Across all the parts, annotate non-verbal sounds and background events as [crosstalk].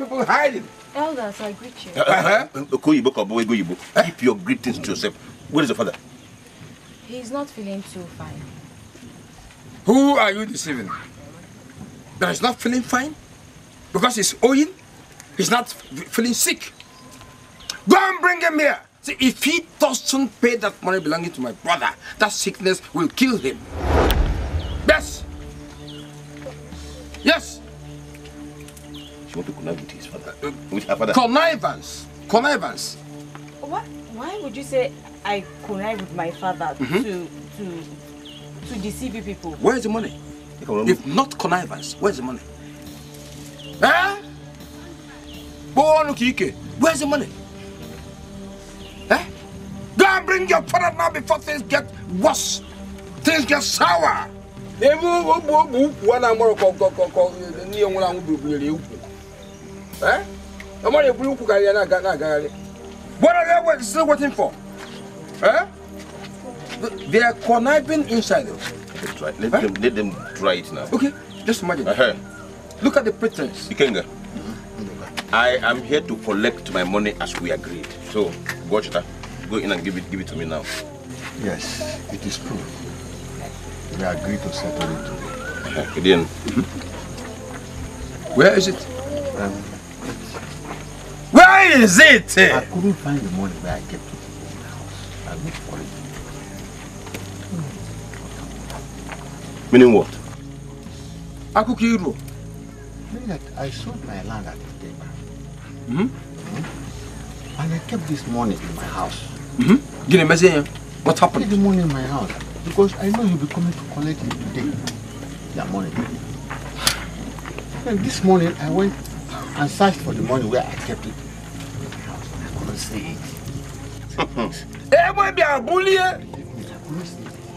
people hiding. Elders, I greet you. Uh -huh. Keep your greetings to yourself. Where is your father? He's not feeling too fine. Who are you deceiving? That is not feeling fine? Because he's owing? He's not feeling sick? Go and bring him here! See, if he doesn't pay that money belonging to my brother, that sickness will kill him. Yes! Yes! She wants to connive with his father. Uh, with her father. Connivance. Connivance. What? Why would you say I connive with my father mm -hmm. to to to deceive people? Where's the money? If not connivance, where's the money? Eh? Where's the money? Eh? Go and bring your father now before things get worse. Things get sour. Eh? I'm only blue guy and I got that guy. What are they still waiting for? Eh? They are conniving inside. Let, let, them, eh? let them try it now. Okay, just imagine. Uh -huh. Look at the pretense. Ikenga, I am here to collect my money as we agreed. So, Gochita, go in and give it, give it to me now. Yes, it is true. We agreed to settle it today. Uh-huh. Gideon, where is it? Um, where is it? I couldn't find the money where I kept it in the house. I looked for it. Meaning what? I Akukiru. Meaning that I sold my land at the Mm -hmm. hmm? And I kept this money in my house. Mm -hmm. What happened? I kept the money in my house because I know you'll be coming to collect it today. That money. [sighs] And this morning I went and searched for the money where I kept it I couldn't see it. be a bully.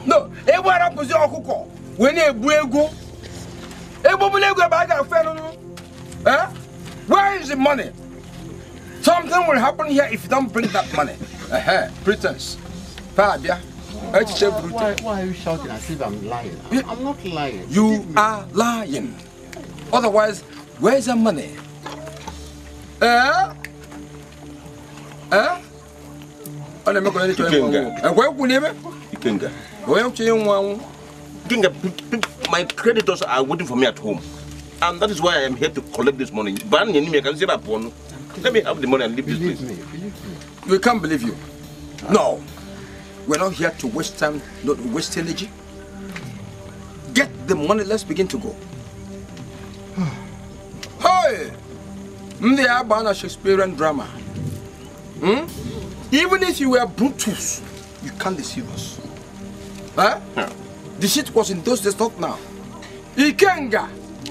No, ewe ara posi okuko. We na ebu ego. Ebo bu ego ba ga fe no. Eh? Where is the money? Something will happen here if you don't bring that money. Eh eh, pretense. Pa bia. Why, why, why are you shouting as if I'm lying? I'm not lying. You are lying. Otherwise, where's the money? ana meko nani my creditors are waiting for me at home and that is why i am here to collect this money ban me let me have the money and leave believe this place me, we can't believe you no we're not here to waste time not waste energy get the money let's begin to go [sighs] hey bound to a Shakespearean drama. Hmm? Even if you were Brutus, you can't deceive us. Huh? Yeah. The shit was in those days, not now. Ikenga,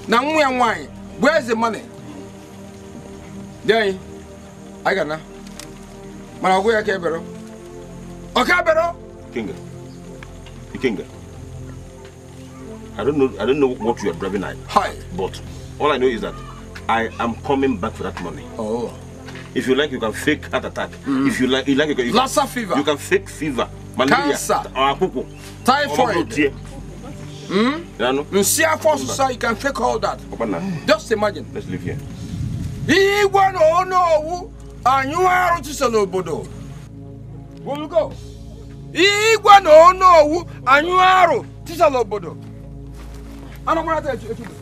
na nwa nwanyị, where's the money? Dey, I got na. Mana ọgụ ya ka ebero. Ọ ka ebero? Ikenga. Ikenga. I don't know I don't know what you are driving at. Hi. But all I know is that I am coming back for that money. Oh. If you like, you can fake heart attack. Mm. If you like, you like, you can. Lassa fever. You can fake fever. Malaria. Cancer. Uh, Or akuku. Typhoid. Hmm? You see how far society can fake all that. Mm. Just imagine. Let's live here. Igwe no no anyu aru chise Where We'll go. Igwe no no anyu aru chise n'obodo. Anamara ta etu etu.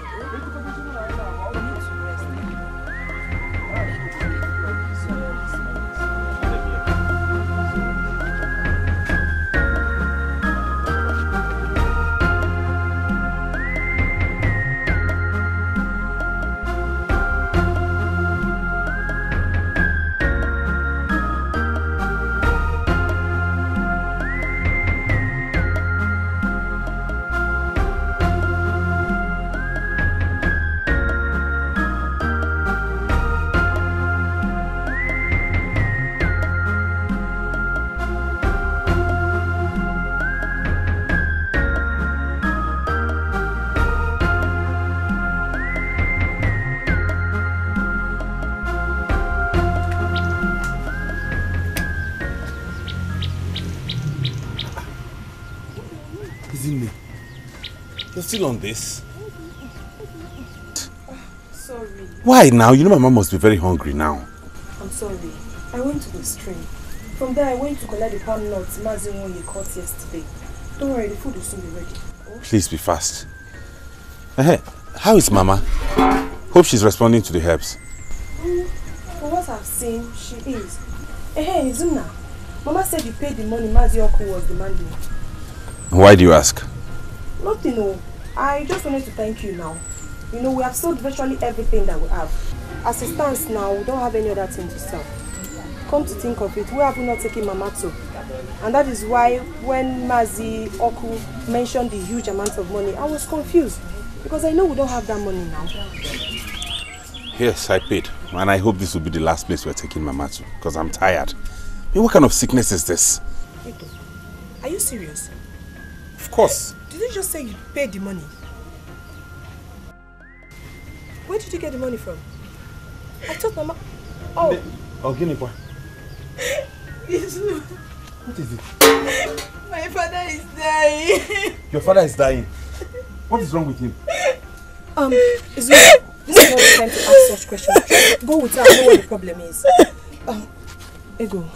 working on this. Sorry. Why now? You know my mom must be very hungry now. I'm sorry. I went to the stream. From there, I went to collect the palm nuts Mazinwonye caught yesterday. Don't worry, the food will soon be ready. Oh. Please be fast. Uh -huh. How is Mama? Hope she's responding to the herbs. Mm, from what I've seen, she is. Eh, uh hey, -huh, Izuna. Mama said you paid the money Mazi Uncle was demanding. Why do you ask? Nothing, oh. I just wanted to thank you now. You know, we have sold virtually everything that we have. As it stands now, we don't have any other thing to sell. Come to think of it, we have not taken Mamato. And that is why when Mazi Oku mentioned the huge amount of money, I was confused. Because I know we don't have that money now. Yes, I paid. And I hope this will be the last place we're taking Mamato. Because I'm tired. what kind of sickness is this? Are you serious? Of course. Did you just say you paid the money? Where did you get the money from? I told Mama... Oh. The... Oh, give me point. [laughs] What is it? My father is dying. [laughs] Your father is dying? What is wrong with him? Um, Izu, this is not the time to ask such questions. Go with her, I know what the problem is. Um, Ego,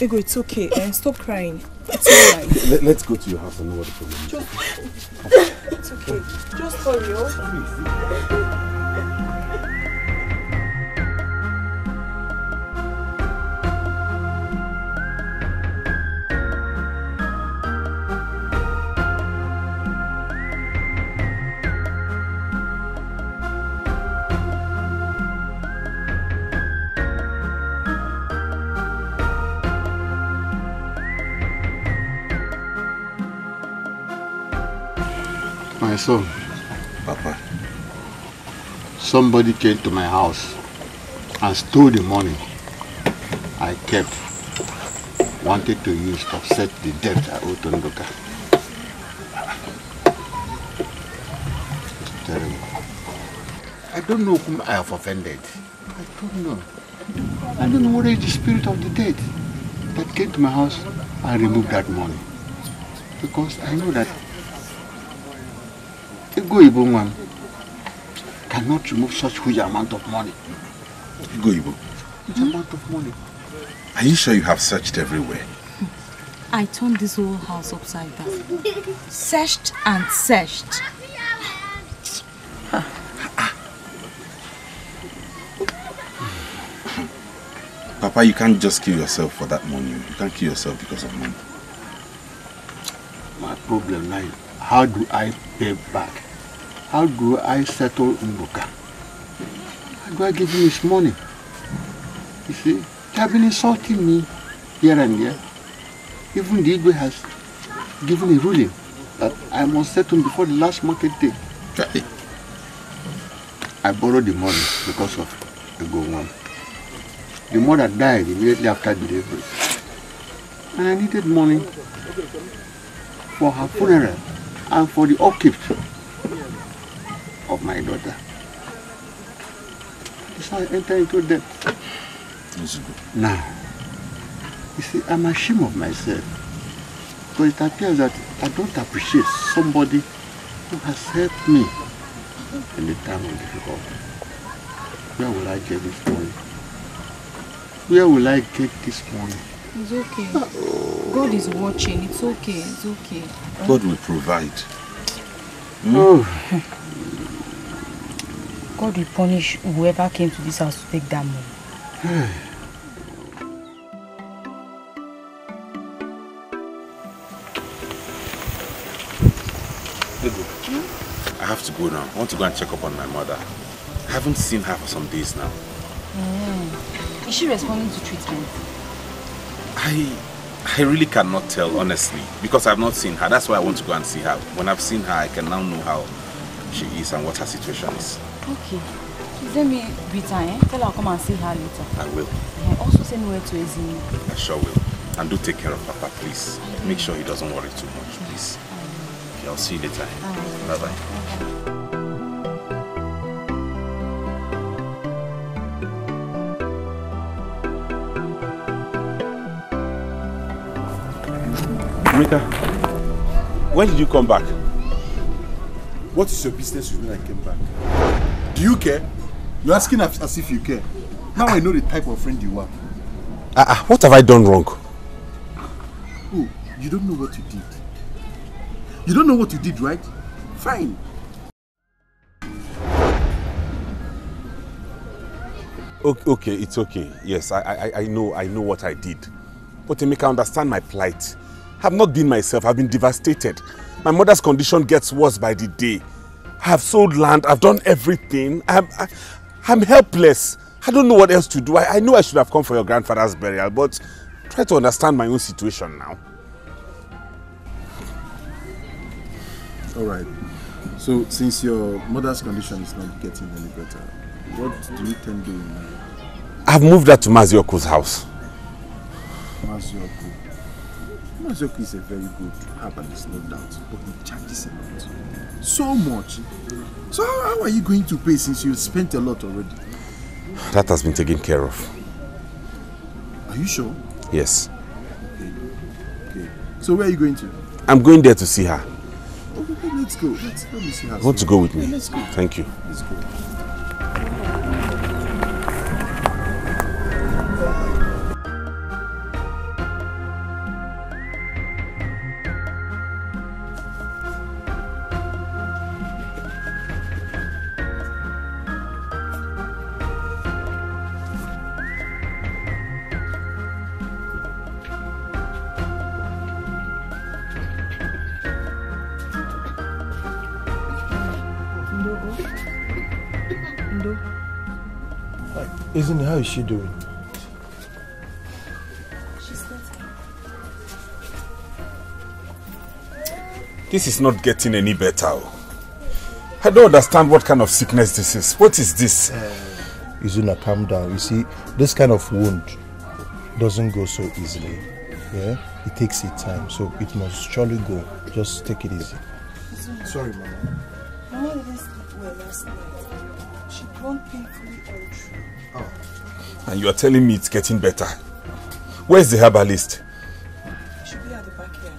Ego, eh, it's okay. Uh, stop crying. It's alright. [laughs] Let, let's go to your house and know what the problem is. Just, it's okay. Just hurry up. son. Papa. Somebody came to my house and stole the money I kept. Wanted to use to offset the debt I owed to Ndoka. It's terrible. I don't know whom I have offended. I don't know. I don't know what is the spirit of the dead that came to my house and removed that money. Because I know that Ibu cannot remove such huge amount of money. Go Ibu. Huge hmm? amount of money. Are you sure you have searched everywhere? I turned this whole house upside down. searched and searched. Papa, you can't just kill yourself for that money. You can't kill yourself because of money. My problem now how do I pay back how do I settle Nruka? How do I give him his money? You see, they have been insulting me here and there. Even the Igwe has given a ruling that I must settle before the last market day. I borrowed the money because of the go one. The mother died immediately after delivery. And I needed money for her funeral and for the upkeep my daughter. That's how I enter into debt. Yes, now, you see, I'm ashamed of myself. Because it appears that I don't appreciate somebody who has helped me in the time of difficulty. Where will I get this money? Where will I get this money? It's okay. Ah, God is watching. It's okay. It's okay. God will provide. Mm? Oh. God will punish whoever came to this house to take that money. I have to go now. I want to go and check up on my mother. I haven't seen her for some days now. Mm. Is she responding to treatment? I I really cannot tell, honestly, because I've not seen her. That's why I want to go and see her. When I've seen her, I can now know how she is and what her situation is. Okay. Let me greet her, eh? Tell her I'll come and see her later. I will. Yeah, also send word to Ezini. I sure will. And do take care of Papa, please. Make sure he doesn't worry too much, please. Okay, I'll see you later. Eh? Bye-bye. Right. Mika, when did you come back? What is your business with me I came back? Do you care? You're asking as if you care. Now I know the type of friend you are. Ah, uh, uh, what have I done wrong? Oh, you don't know what you did. You don't know what you did, right? Fine. Okay, okay it's okay. Yes, I, I, I know, I know what I did. But Emeka, understand my plight. I have not been myself. I've been devastated. My mother's condition gets worse by the day. I've sold land, I've done everything. I'm, I, I'm helpless. I don't know what else to do. I, I know I should have come for your grandfather's burial, but try to understand my own situation now. All right. So, since your mother's condition is not getting any better, what do you intend doing now? I've moved her to Mazioko's house. Mazioko. Mazioko is a very good herbalist, no doubt, but he charges a lot. So much. So how are you going to pay since you spent a lot already? That has been taken care of. Are you sure? Yes. Okay. okay. So where are you going to? I'm going there to see her. Okay, let's go. Let's, let me see her. Want to go with me? Yeah, let's go. Thank you. Let's go. Isn't how is she doing? She's better. This is not getting any better. Oh. I don't understand what kind of sickness this is. What is this? Uh, Izuna, calm down. You see, this kind of wound doesn't go so easily. Yeah? It takes its time, so it must surely go. Just take it easy. Izuna. Sorry, Mama. Mama didn't sleep well last night. She groaned painfully And you are telling me it's getting better. Where's the herbalist? He should be at the back here.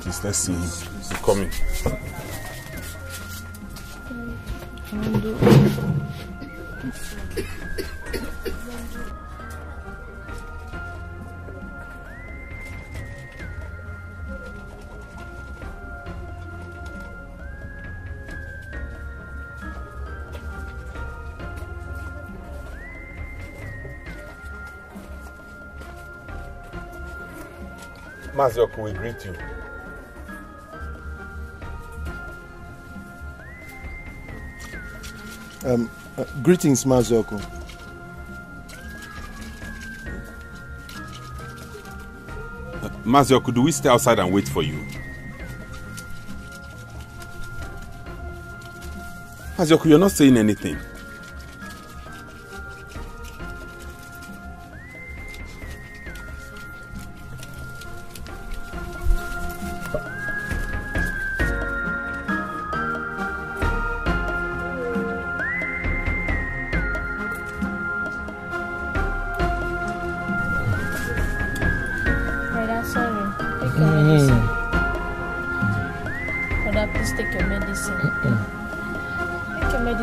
Please, let's see him. He's coming. we greet you. Um, uh, greetings, Mazoko. Uh, do we stay outside and wait for you? Mazoko, you're not saying anything.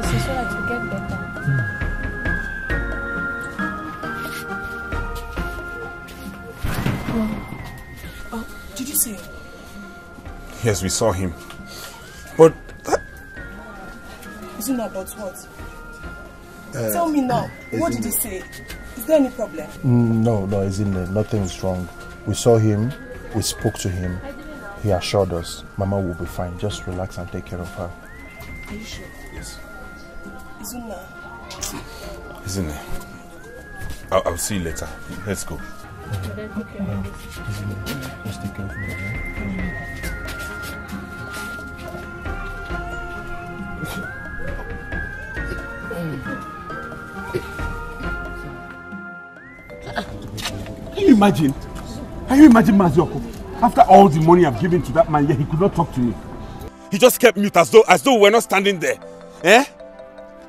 so that you get better. Mm. Oh, did you see him? Yes, we saw him. But that... Isn't that about what? Uh, Tell me now, what did he say? Is there any problem? Mm, no, no, isn't there? Nothing's wrong. We saw him, we spoke to him. He assured us Mama will be fine. Just relax and take care of her. Are you sure? Yes. Zuna. Zuna. I'll, I'll see you later. Let's go. Can you imagine? Can you imagine Mazioko? After all the money I've given to that man, yet he could not talk to me. He just kept mute as though as though we were not standing there. Eh?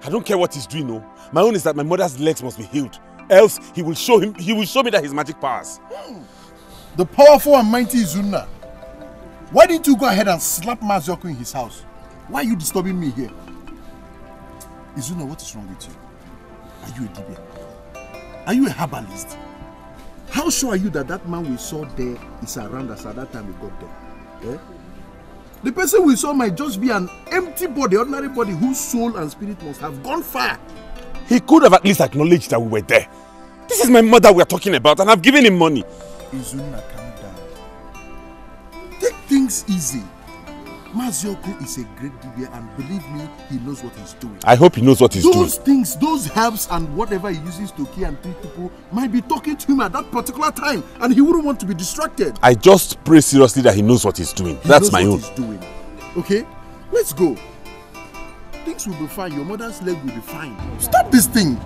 I don't care what he's doing, no. My own is that my mother's legs must be healed. Else, he will show him. He will show me that his magic powers. The powerful and mighty Izuna. Why didn't you go ahead and slap Mazioku in his house? Why are you disturbing me here? Izuna, what is wrong with you? Are you a Dibian? Are you a herbalist? How sure are you that that man we saw there is around us at that time we got there? Eh? The person we saw might just be an empty body, ordinary body, whose soul and spirit must have gone far. He could have at least acknowledged that we were there. This is my mother we are talking about, and I've given him money. Izuna, calm down. Take things easy. Mazioku is a great DBA, and believe me, he knows what he's doing. I hope he knows what he's those doing. Those things, those herbs, and whatever he uses to kill and treat people might be talking to him at that particular time, and he wouldn't want to be distracted. I just pray seriously that he knows what he's doing. He That's knows my what own. He's doing. Okay, let's go. Things will be fine. Your mother's leg will be fine. Stop this thing.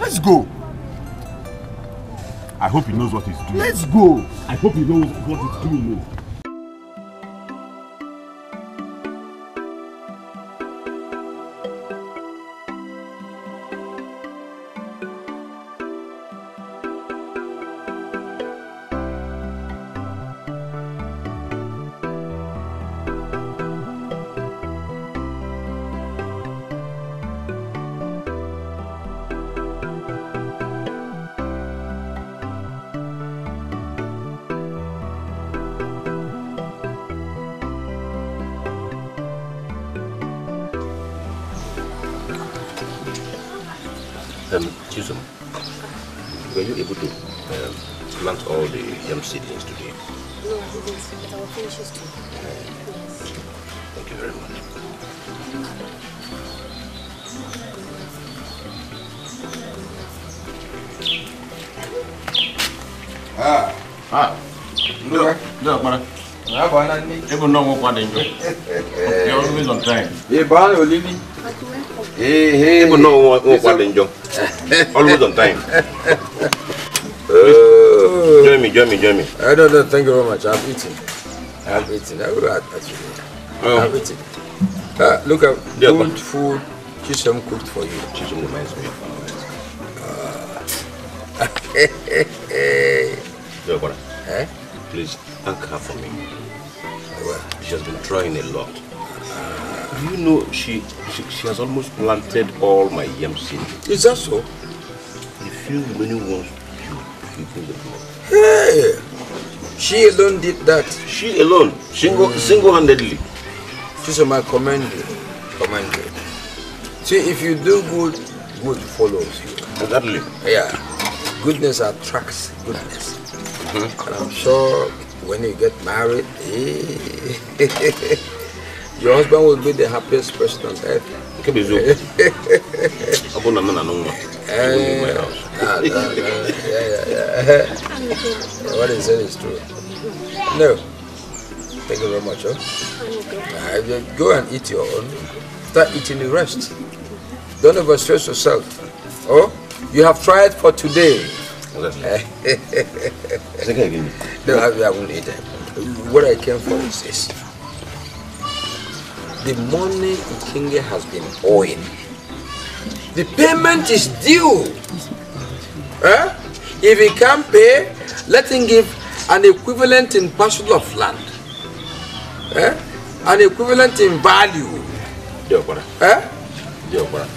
Let's go. I hope he knows what he's doing. Let's go. I hope he knows what he's doing. plant all the yam seedlings today? No, I didn't, but I will finish too. Thank you very much. Ah. Ah. Look. Look, ah, I have no more than you. are always on time. Hey, Barney, you leave me. Hey, hey. Even no more than you. [laughs] Always on time. [laughs] join me, join me, join me. I don't know, thank you very much. I've eaten. I've ah. eaten. I will actually. Oh. I've eaten. Uh, look, I've yeah, good food. Chisholm cooked for you. Chisholm reminds me of hey. Your brother, Please thank her for me. Well, she has been trying a lot. Uh, you know, she, she, she has almost planted all my yam seeds. Is that so? If few many ones you, you bring the blood. Yeah. She alone did that. She alone, single, mm. single-handedly. She's my commander. Commander. See, if you do good, good follows you. Exactly. Yeah. Goodness attracts goodness. Mm -hmm. And I'm sure when you get married, [laughs] your husband will be the happiest person on earth nke [laughs] bụ eziokwu na true. No. Thank you very much. Huh? Uh, go and eat your own. Start eating the rest. Don't overstress yourself. Oh, you have tried for today. [laughs] no, I, I won't eat it. What I came for is this. The money Ikinge has been owing. The payment is due. Eh? If he can't pay, let him give an equivalent in parcel of land. Eh? An equivalent in value. Dear brother. Eh? Dear brother.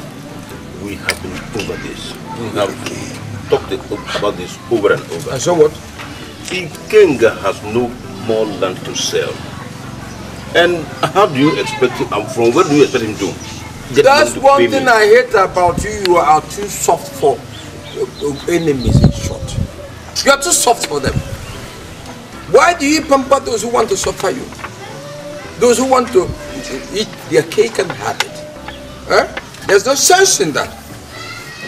We have been over this. We have talked about this over and over. And so what? Ikenga has no more land to sell. And how do you expect him, um, from where do you expect him to get That's to one thing me? I hate about you. You are too soft for uh, enemies in short. You are too soft for them. Why do you pamper those who want to suffer you? Those who want to eat their cake and have it. Huh? There's no sense in that.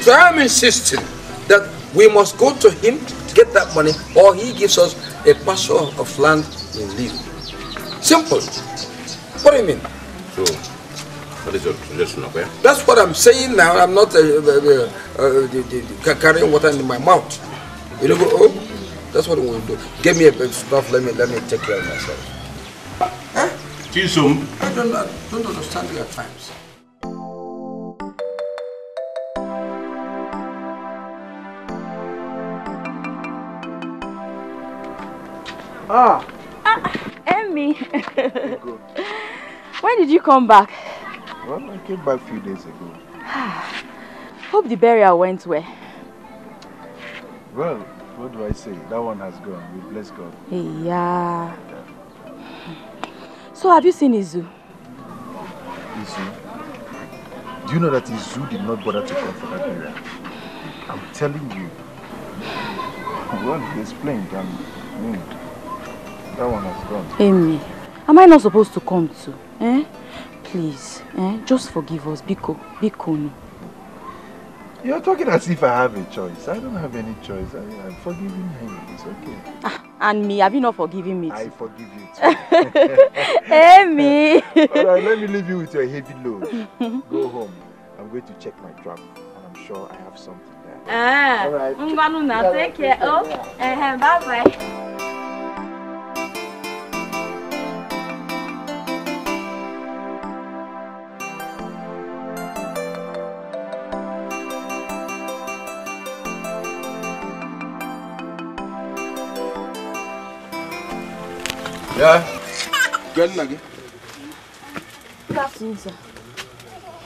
So I'm insisting that we must go to him to get that money or he gives us a parcel of land in lieu. Simple. What do you mean? So, what is your suggestion, okay? That's what I'm saying now. I'm not uh, uh, uh, uh carrying water in my mouth. You know, oh, that's what we will do. Give me a bit of stuff. Let me let me take care of myself. Huh? See soon. I don't I don't understand you at times. Ah. ah. Emmy. [laughs] when did you come back? Well, I came back a few days ago. [sighs] Hope the burial went well. Well, what do I say? That one has gone. We bless God. Yeah. [sighs] So have you seen Izu? Izu? Do you know that Izu did not bother to come for that burial? I'm telling you. [laughs] Well, he explained and... Mm. That one has gone. Amy, am I not supposed to come too? Eh? Please, eh? Just forgive us, Biko, Biko. You're talking as if I have a choice. I don't have any choice. I, I'm forgiving him. It's okay. Ah, and me, have you not forgiven me? Too? I forgive you [laughs] too. Amy! [laughs] All right, let me leave you with your heavy load. [laughs] Go home. I'm going to check my trap, and I'm sure I have something there. Ah, All right. Ngwanu, take care. Oh, uh, eh, eh, bye bye. Yeah? Get in again. Good afternoon, sir.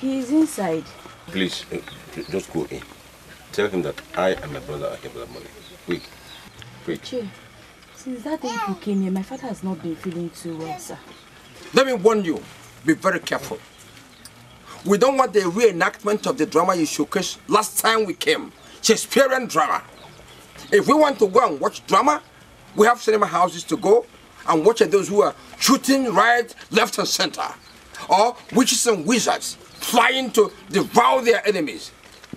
He is inside. Please, eh, just go in. Tell him that I and my brother are here for the money. Quick. Quick. Che, since that day you came here, my father has not been feeling too well, sir. Let me warn you. Be very careful. We don't want the reenactment of the drama you showcased last time we came. Shakespearean drama. If we want to go and watch drama, we have cinema houses to go and watching those who are shooting right, left, and center, or witches and wizards trying to devour their enemies.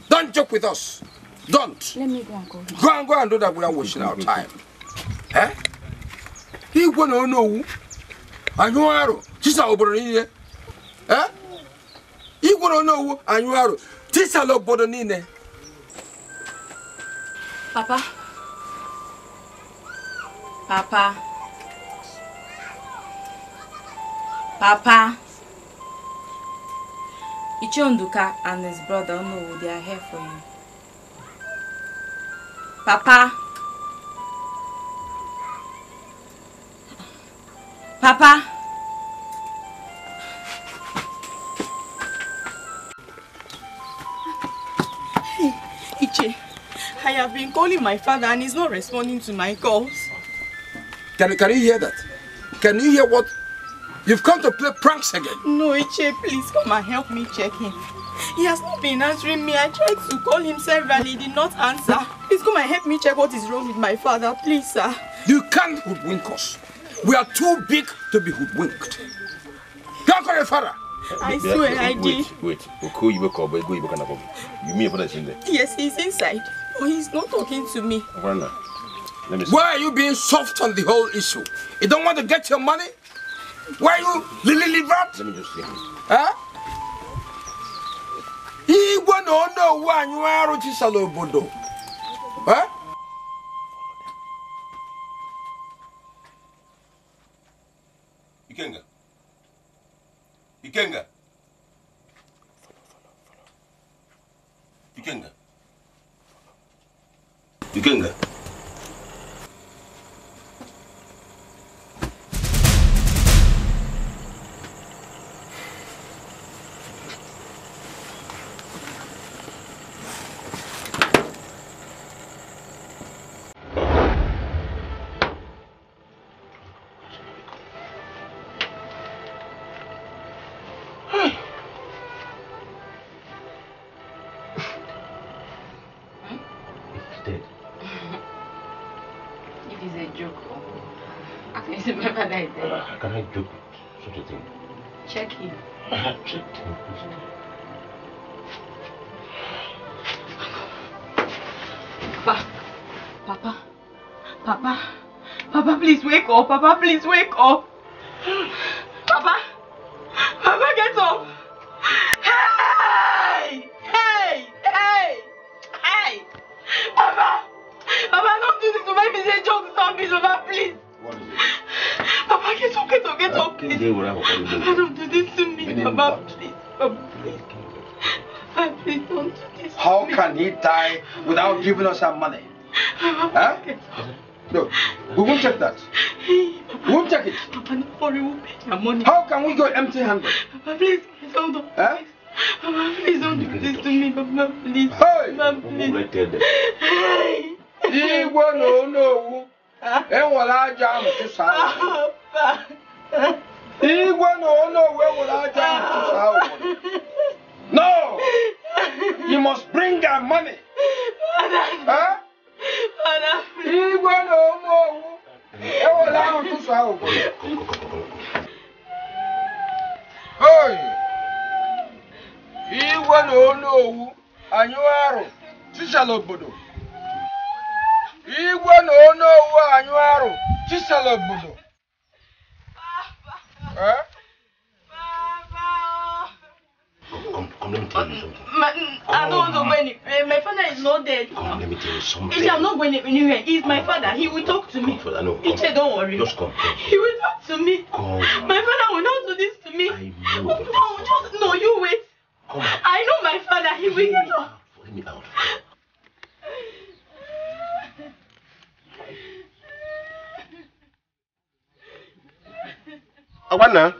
Don't joke with us. Don't. Let me go and go. Go and go and do that without wasting our time. Eh? He gonna know. I know arrow. This is our Eh? He gonna know. I know arrow. This is our Papa. Papa. Papa, Ichonduka and his brother know they are here for you. Papa, Papa. Iche, I have been calling my father and he's not responding to my calls. Can, can you hear that? Can you hear what You've come to play pranks again. No, Iche, please come and help me check him. He has not been answering me. I tried to call him several. He did not answer. Please come and help me check what is wrong with my father. Please, sir. You can't hoodwink us. We are too big to be hoodwinked. Don't call your father. I swear I did. Wait, wait. Okay, you up. Go, you can You mean your father is in there? Yes, he's inside. But he's not talking to me. Why are you being soft on the whole issue? You don't want to get your money? Why you Lily Livat? Let me just see. Huh? Igwe na ono owu anyụ arụ chisala obodo. Huh? Ikenga. Ikenga. Ikenga. Ikenga. I do it. thing. do you Checky. Papa. Papa. Papa. Papa, please wake up. Papa, please wake up. die without giving us our money. Huh? No, we won't take that. We won't take it. Papa, no worry, we'll pay your money. How can we go empty-handed? Papa, please, please don't do huh? Papa, please don't do this to me, Papa, please. Hey! Papa, please. Hey! Igwe na onowu, enwere aja ahụ tụsa ahụ. Igwe no. onowu enwere aja ahụ to ahụ. No! you must bring that money. Huh? Igwe na ụmụ owu ewela ahụ tụsụ ahụ Hoi! Igwe na onu owu anyị arụ chisala obodo. Igwe na onu owu anyị arụ chisala obodo. funny. I don't oh, know when uh, my father is not dead. Come, let me tell you something. I'm not going anywhere. He's my father. He will talk to me. Father, no, Ichi, don't worry. Just come, come. He will talk to me. Come. My father will not do this to me. I know. Oh, just no, you wait. Come. I know my father. He will get up. Let me out. [laughs] Awana.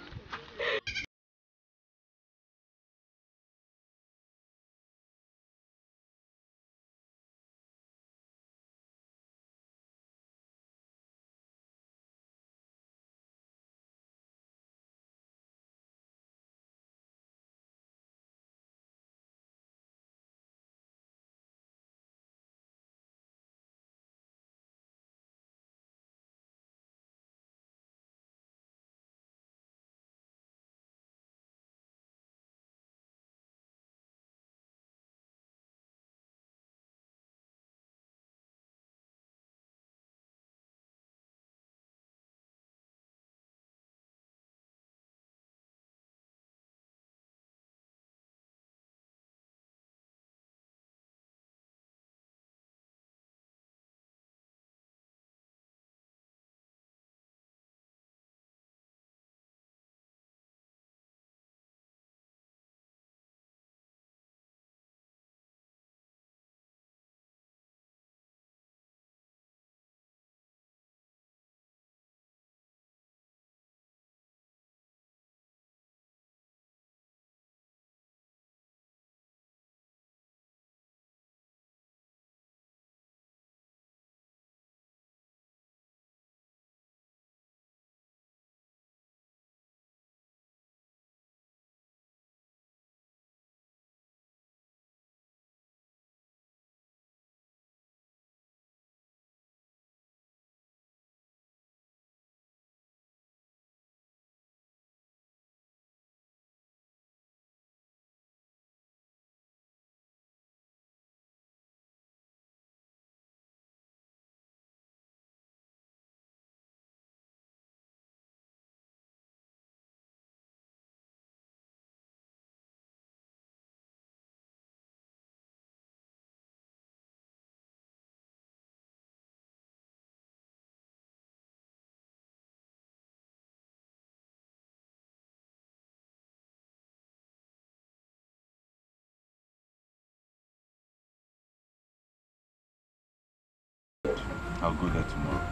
I'll go there tomorrow.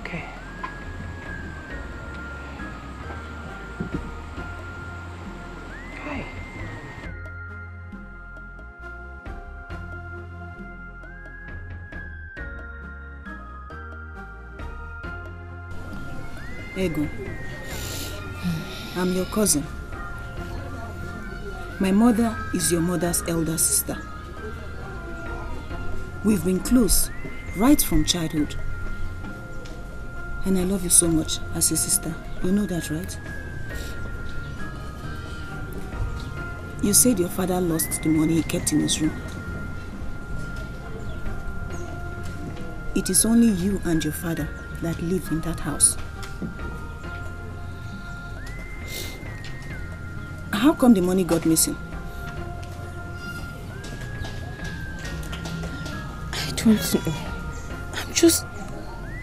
Okay. Okay. Ego, I'm your cousin. My mother is your mother's elder sister. We've been close right from childhood. And I love you so much as a sister. You know that, right? You said your father lost the money he kept in his room. It is only you and your father that live in that house. How come the money got missing? I don't know just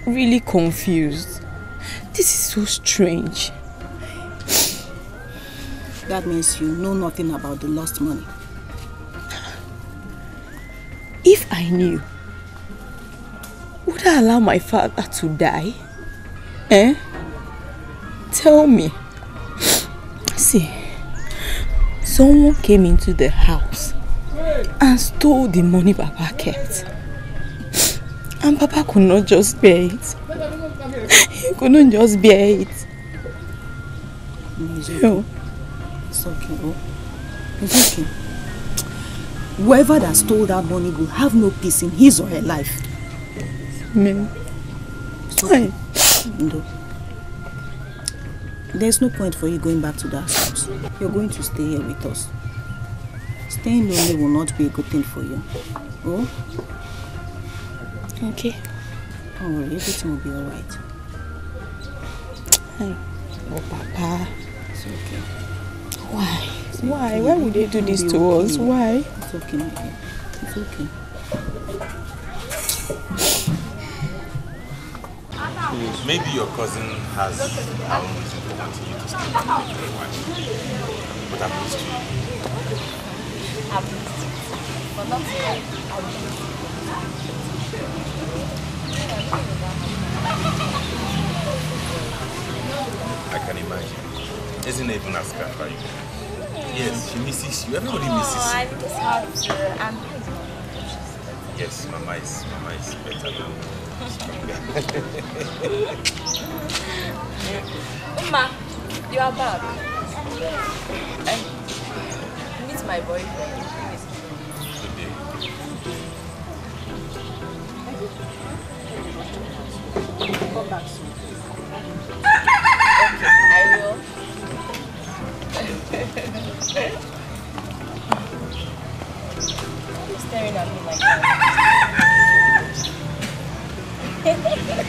really confused. This is so strange. That means you know nothing about the lost money. If I knew, would I allow my father to die? Eh? Tell me. See, someone came into the house and stole the money Baba kept. And Papa could not just bear it. He couldn't just bear it. It's okay. It's okay. Oh. It's okay. Whoever that stole that money will have no peace in his or her life. Amen. It's okay. No. There's no point for you going back to that house. You're going to stay here with us. Staying lonely will not be a good thing for you. Oh? Okay. Don't worry, everything will be alright. Hi, Oh, Papa. It's okay. Why? It's Why? Okay. Why would they do this to okay. us? Why? It's okay. It's okay. Maybe your cousin has um, wanting you to stay with you for a while. But i you. I've missed you. But not scared. i am not you. I can imagine. Isn't it, as for you? Yes, she misses you. Everybody oh, misses you. I miss her. I'm Yes, Mama is, Mama is better than. [laughs] Uma, you are back. Um, uh, meet my boyfriend. staring at me like that. [laughs]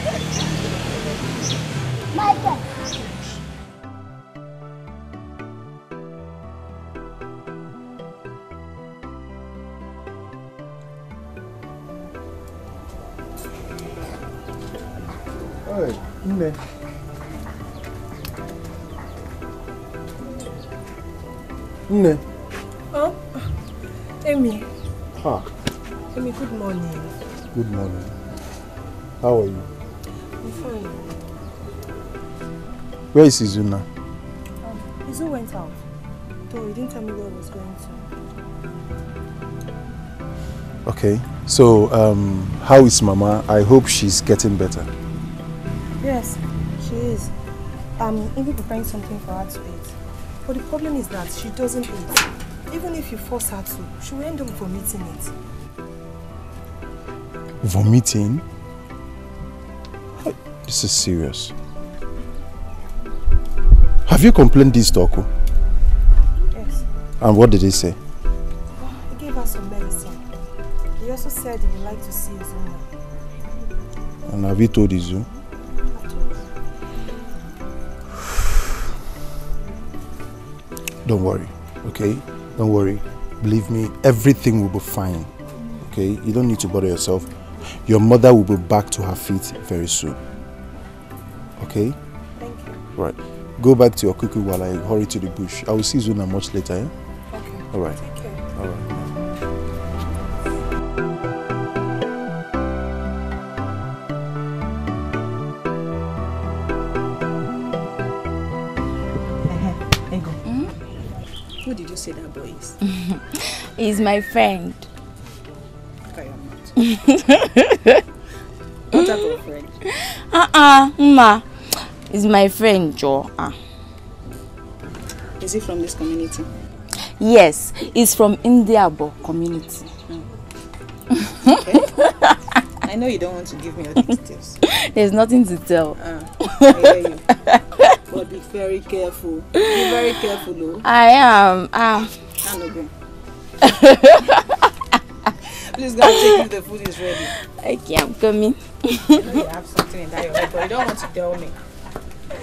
Where is Izuna? Um, Izu went out. Though he didn't tell me where he was going to. Okay. So, um, how is Mama? I hope she's getting better. Yes, she is. I'm even preparing something for her to eat. But the problem is that she doesn't eat. Even if you force her to, she will end up vomiting it. Vomiting? This is serious. Have you complained this to Oku? Yes. And what did he say? He gave us some medicine. He also said he would like to see mother. And have you told Izu? Don't worry, okay? Don't worry. Believe me, everything will be fine, okay? You don't need to bother yourself. Your mother will be back to her feet very soon, okay? Thank you. Right. Go back to your cuckoo while I hurry to the bush. I will see Zuna much later. Eh? Okay. All right. Take care. All right. Hmm? Who did you say that boy is? [laughs] He's my friend. I am not. [laughs] What type of friend? Uh-uh, Ma. Is my friend Joa. Ah. Is he from this community? Yes, he's from Indiabo community. Oh. Okay. I know you don't want to give me all the details. [laughs] There's nothing to tell. Ah, I hear you. but be very careful. Be very careful, though. I am. Ah. And ah, again. [laughs] Please go and if the food is ready. Okay, I'm coming. I know you have something in that your head, but you don't want to tell me. Did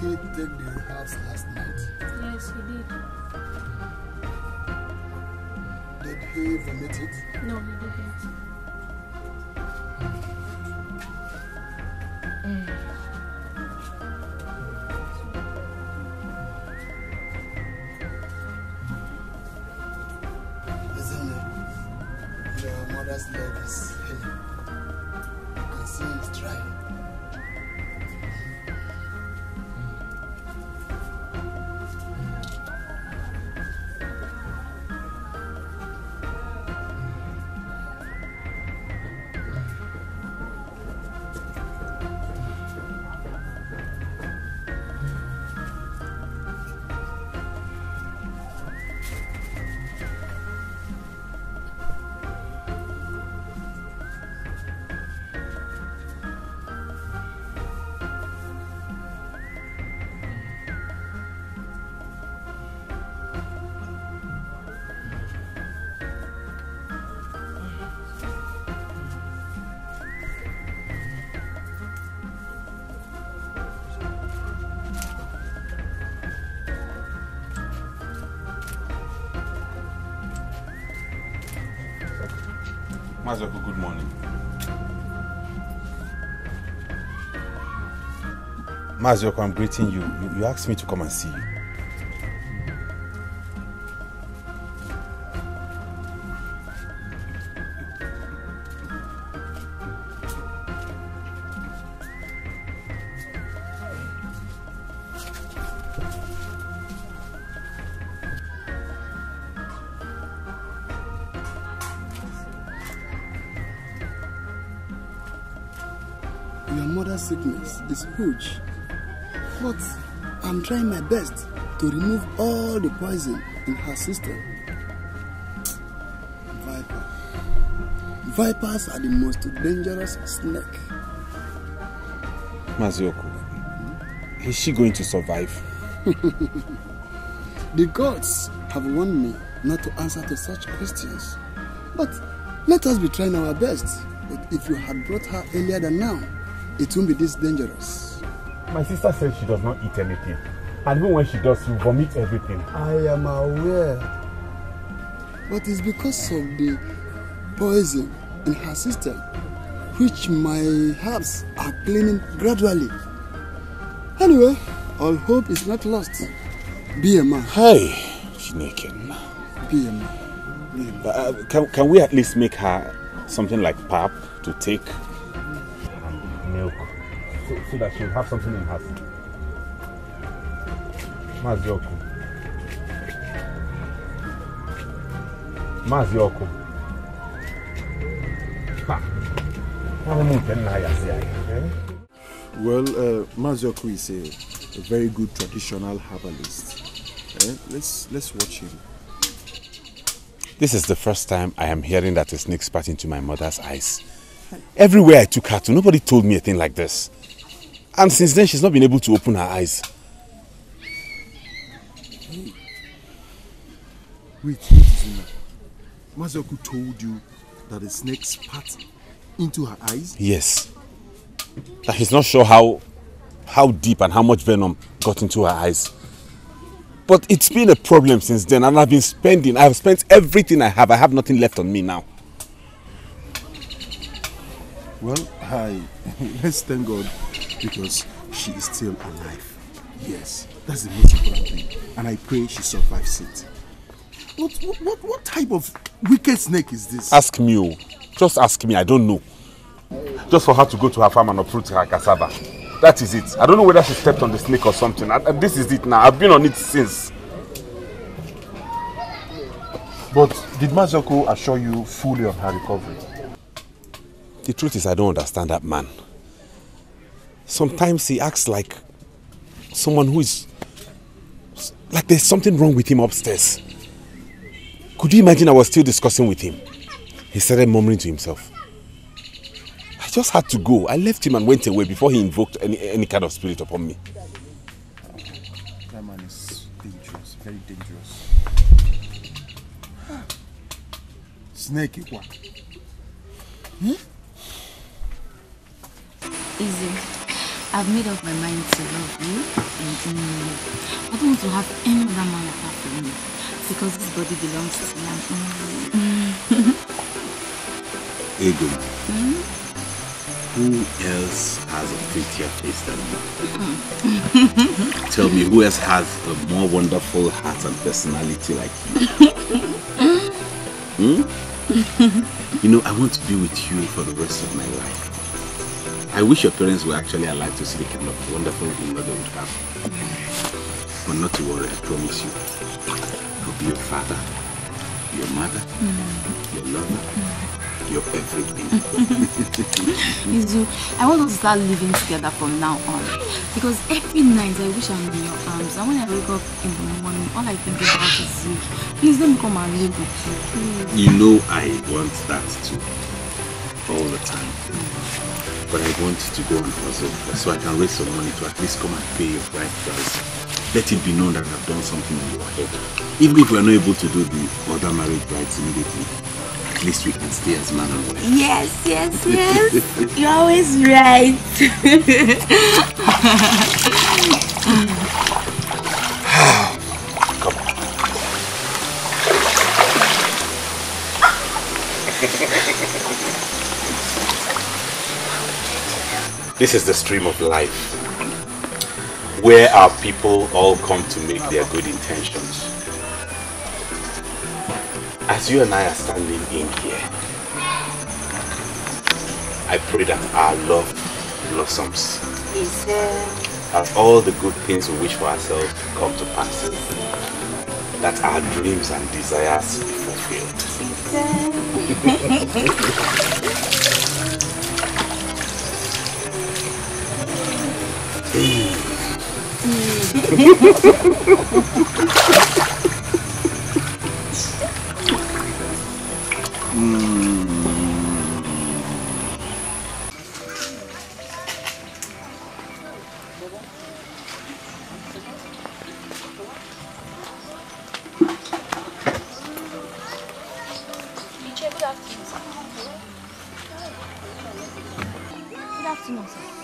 he take the house last night? Yes, he did. Did he vomit it? No, he didn't. Mm. Mazioko, I'm greeting you. you. You asked me to come and see you. Your mother's sickness is huge. But I'm trying my best to remove all the poison in her system. Viper. Vipers are the most dangerous snake. Mazioku, is she going to survive? [laughs] the gods have warned me not to answer to such questions. But let us be trying our best. But if you had brought her earlier than now, it would not be this dangerous. My sister says she does not eat anything. And even when she does, she vomits everything. I am aware. But it's because of the poison in her system, which my herbs are cleaning gradually. Anyway, all hope is not lost. Be a man. Hey, Chinekin. Be a man. Be a man. Uh, can, can we at least make her something like pap to take? And milk. so, so that she'll have something in her Maazị ọkụ Maazị ọkụ ọrụ nke nna ya Well, uh, Mazioku is a, a very good traditional herbalist. Eh? let's, let's watch him. This is the first time I am hearing that a snake spat into my mother's eyes. Everywhere I took her to, nobody told me a thing like this. And since then, she's not been able to open her eyes. Wait, Zuma. Mazoku told you that the snake spat into her eyes? Yes. That he's not sure how, how deep and how much venom got into her eyes. But it's been a problem since then and I've been spending. I've spent everything I have. I have nothing left on me now. Well, hi. [laughs] Let's thank God because she is still alive. Yes, that's the most important thing. And I pray she survives it. What, what, what type of wicked snake is this? Ask me, oh. Just ask me, I don't know. Just for her to go to her farm and uproot her cassava. That is it. I don't know whether she stepped on the snake or something. I, I, this is it now. I've been on it since. But did Mazoko assure you fully of her recovery? The truth is I don't understand that man. sometimes he acts like someone who is like there's something wrong with him upstairs. Could you imagine I was still discussing with him? He started murmuring to himself. I just had to go. I left him and went away before he invoked any, any kind of spirit upon me. That man is dangerous, very dangerous. Snake one. Hmm? Easy. I've made up my mind to love you and only you. I don't want to have any other man apart from you because this body belongs to me and only you. [laughs] Ego, hmm? who else has a prettier face than me? Hmm. [laughs] Tell me, who else has a more wonderful heart and personality like you? [laughs] hmm? you know, I want to be with you for the rest of my life. I wish your parents were actually alive to see the kind of wonderful mother they would have. But not to worry, I promise you. I'll be your father, your mother, mm. your lover, mm. your everything. [laughs] Izu, I want us to start living together from now on. Because every night I wish I'm in your arms. And when I wake up in the morning, all I think about is you. Please let me come and live with you. Please. You know I want that too. All the time. Mm but I want to go on hustle so I can raise some money to at least come and pay your bride price. Let it be known that I've done something in your head. Even if we're not able to do the other marriage rites immediately, at least we can stay as man and wife. Yes, yes, [laughs] yes. You're always right. [laughs] This is the stream of life where our people all come to make their good intentions. As you and I are standing in here, I pray that our love blossoms. Is That all the good things we wish for ourselves come to pass. That our dreams and desires be fulfilled. [laughs]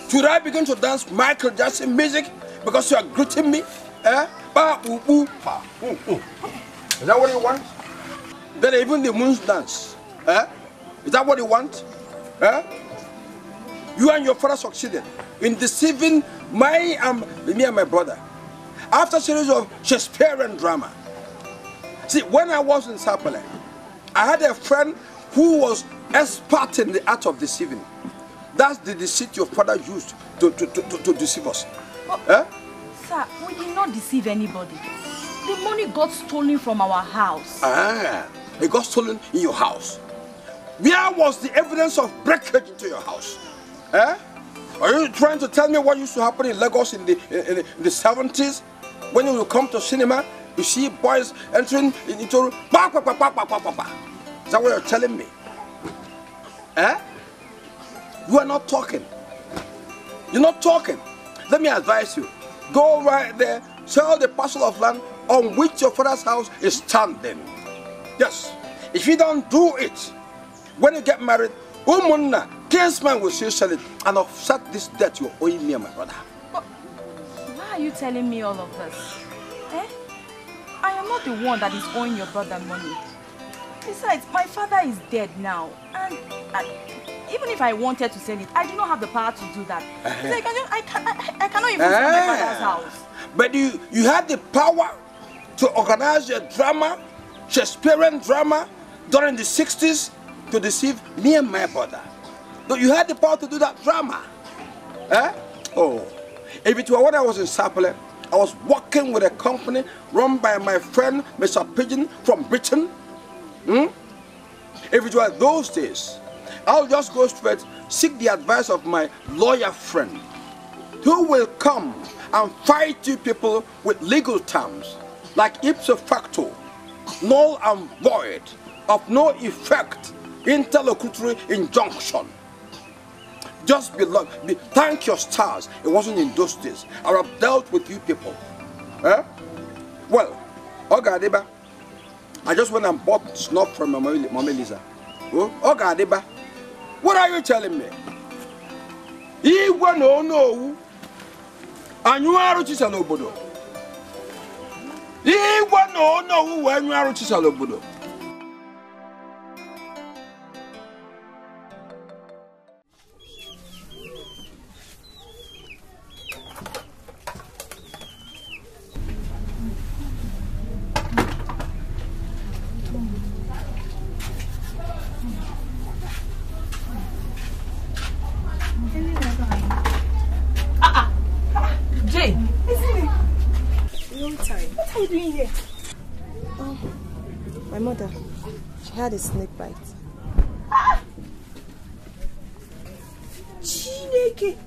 Should I begin to dance Michael Jackson music? because you are greeting me. Eh? Ba ubu. Ba. Is that what you want? Then even the moons dance. Eh? Is that what you want? Eh? You and your father succeeded in deceiving my um, me and my brother. After a series of Shakespearean drama. See, when I was in Sapele, I had a friend who was expert in the art of deceiving. That's the deceit your father used to, to, to, to, to deceive us. Eh? Sir, we did not deceive anybody. The money got stolen from our house. Ah, it got stolen in your house. Where was the evidence of breakage into your house? Eh? Are you trying to tell me what used to happen in Lagos in the, in in the 70s? When you come to cinema, you see boys entering into... Is that what you're telling me? Eh? You are not talking. You're not talking. Let me advise you. Go right there, sell the parcel of land on which your father's house is standing. Yes, if you don't do it, when you get married, Umunna, kinsman will still sell it and offset this debt you owe me and my brother. But why are you telling me all of this? Eh? I am not the one that is owing your brother money. Besides, my father is dead now and even if I wanted to send it, I do not have the power to do that. Uh -huh. like, I, can, I, can, I, I cannot even send my eh. father's house. But you, you have the power to organize your drama, Shakespearean drama, during the 60s to deceive me and my brother. No, you had the power to do that drama. Eh? Oh, if it were when I was in Sapele, I was working with a company run by my friend Mr. Pigeon from Britain. Hmm? If it were those days, I'll just go straight, seek the advice of my lawyer friend who will come and fight you people with legal terms like ipso facto, null and void, of no effect, interlocutory injunction. Just be, be thank your stars, it wasn't in those days. I have dealt with you people. Eh? Well, Ogadeba, I just went and bought snuff from my Mama Lisa. Oh, Ogadeba. What are you telling me? Igwe na onu owu anyụ arụ chisala obodo. Igwe na onu owu wee nyụ arụ chisala obodo. a snake bite. Ah! Chineke!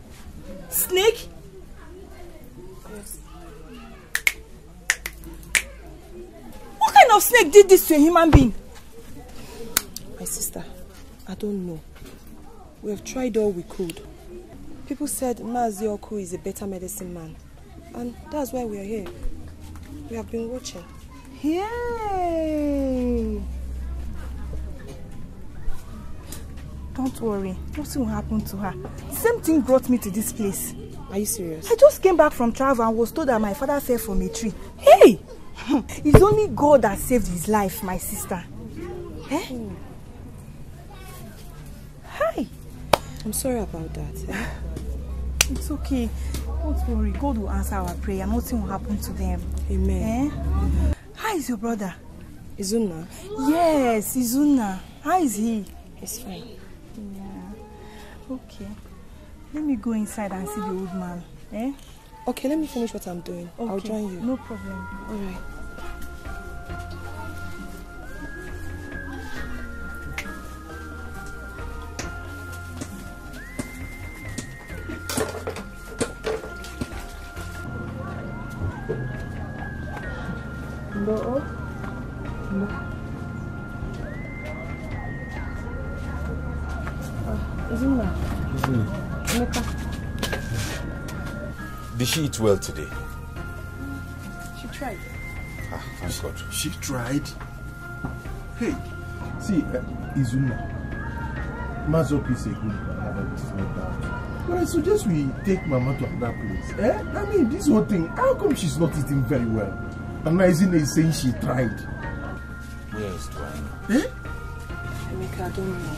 Snake? Yes. What kind of snake did this to a human being? My sister, I don't know. We have tried all we could. People said Mazi is a better medicine man. And that's why we are here. We have been watching. Yay! Don't worry, nothing will happen to her. The same thing brought me to this place. Are you serious? I just came back from travel and was told that my father fell from a tree. Hey! [laughs] It's only God that saved his life, my sister. Eh? Hi! I'm sorry about that. Eh? [sighs] It's okay. Don't worry. God will answer our prayer. Nothing will happen to them. Amen. Eh? How is your brother? Izuna. Yes, Izuna. How is he? He's fine. Okay. Let me go inside and see the old man. Eh? Okay, let me finish what I'm doing. Okay. I'll join you. No problem. All right. she eat well today? She tried. Ah, thank she, God. She tried? Hey, see, uh, Izuma, is a good brother, no doubt. But I suggest we take Mama to another place. Eh? I mean, this whole thing, how come she's not eating very well? And now Izina is saying she tried. Yes, Dwayne. Eh? Emeka, I don't know.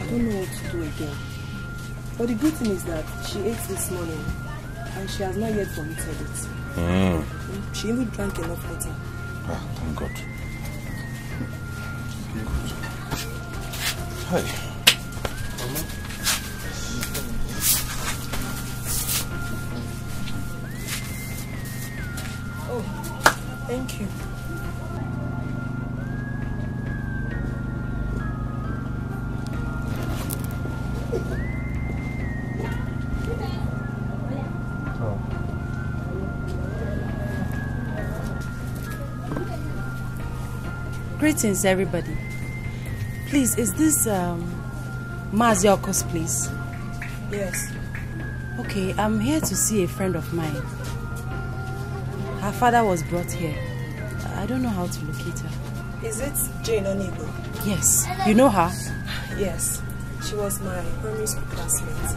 I don't know what to do again. But the good thing is that she ate this morning and she has not yet vomited it. Mm. She even drank enough water. Ah, thank God. Thank God. Greetings, everybody. Please, is this um, Please. Yes. Okay, I'm here to see a friend of mine. Her father was brought here. I don't know how to locate her. Is it Jane Onigo? Yes. You know her? Yes. She was my primary school classmate.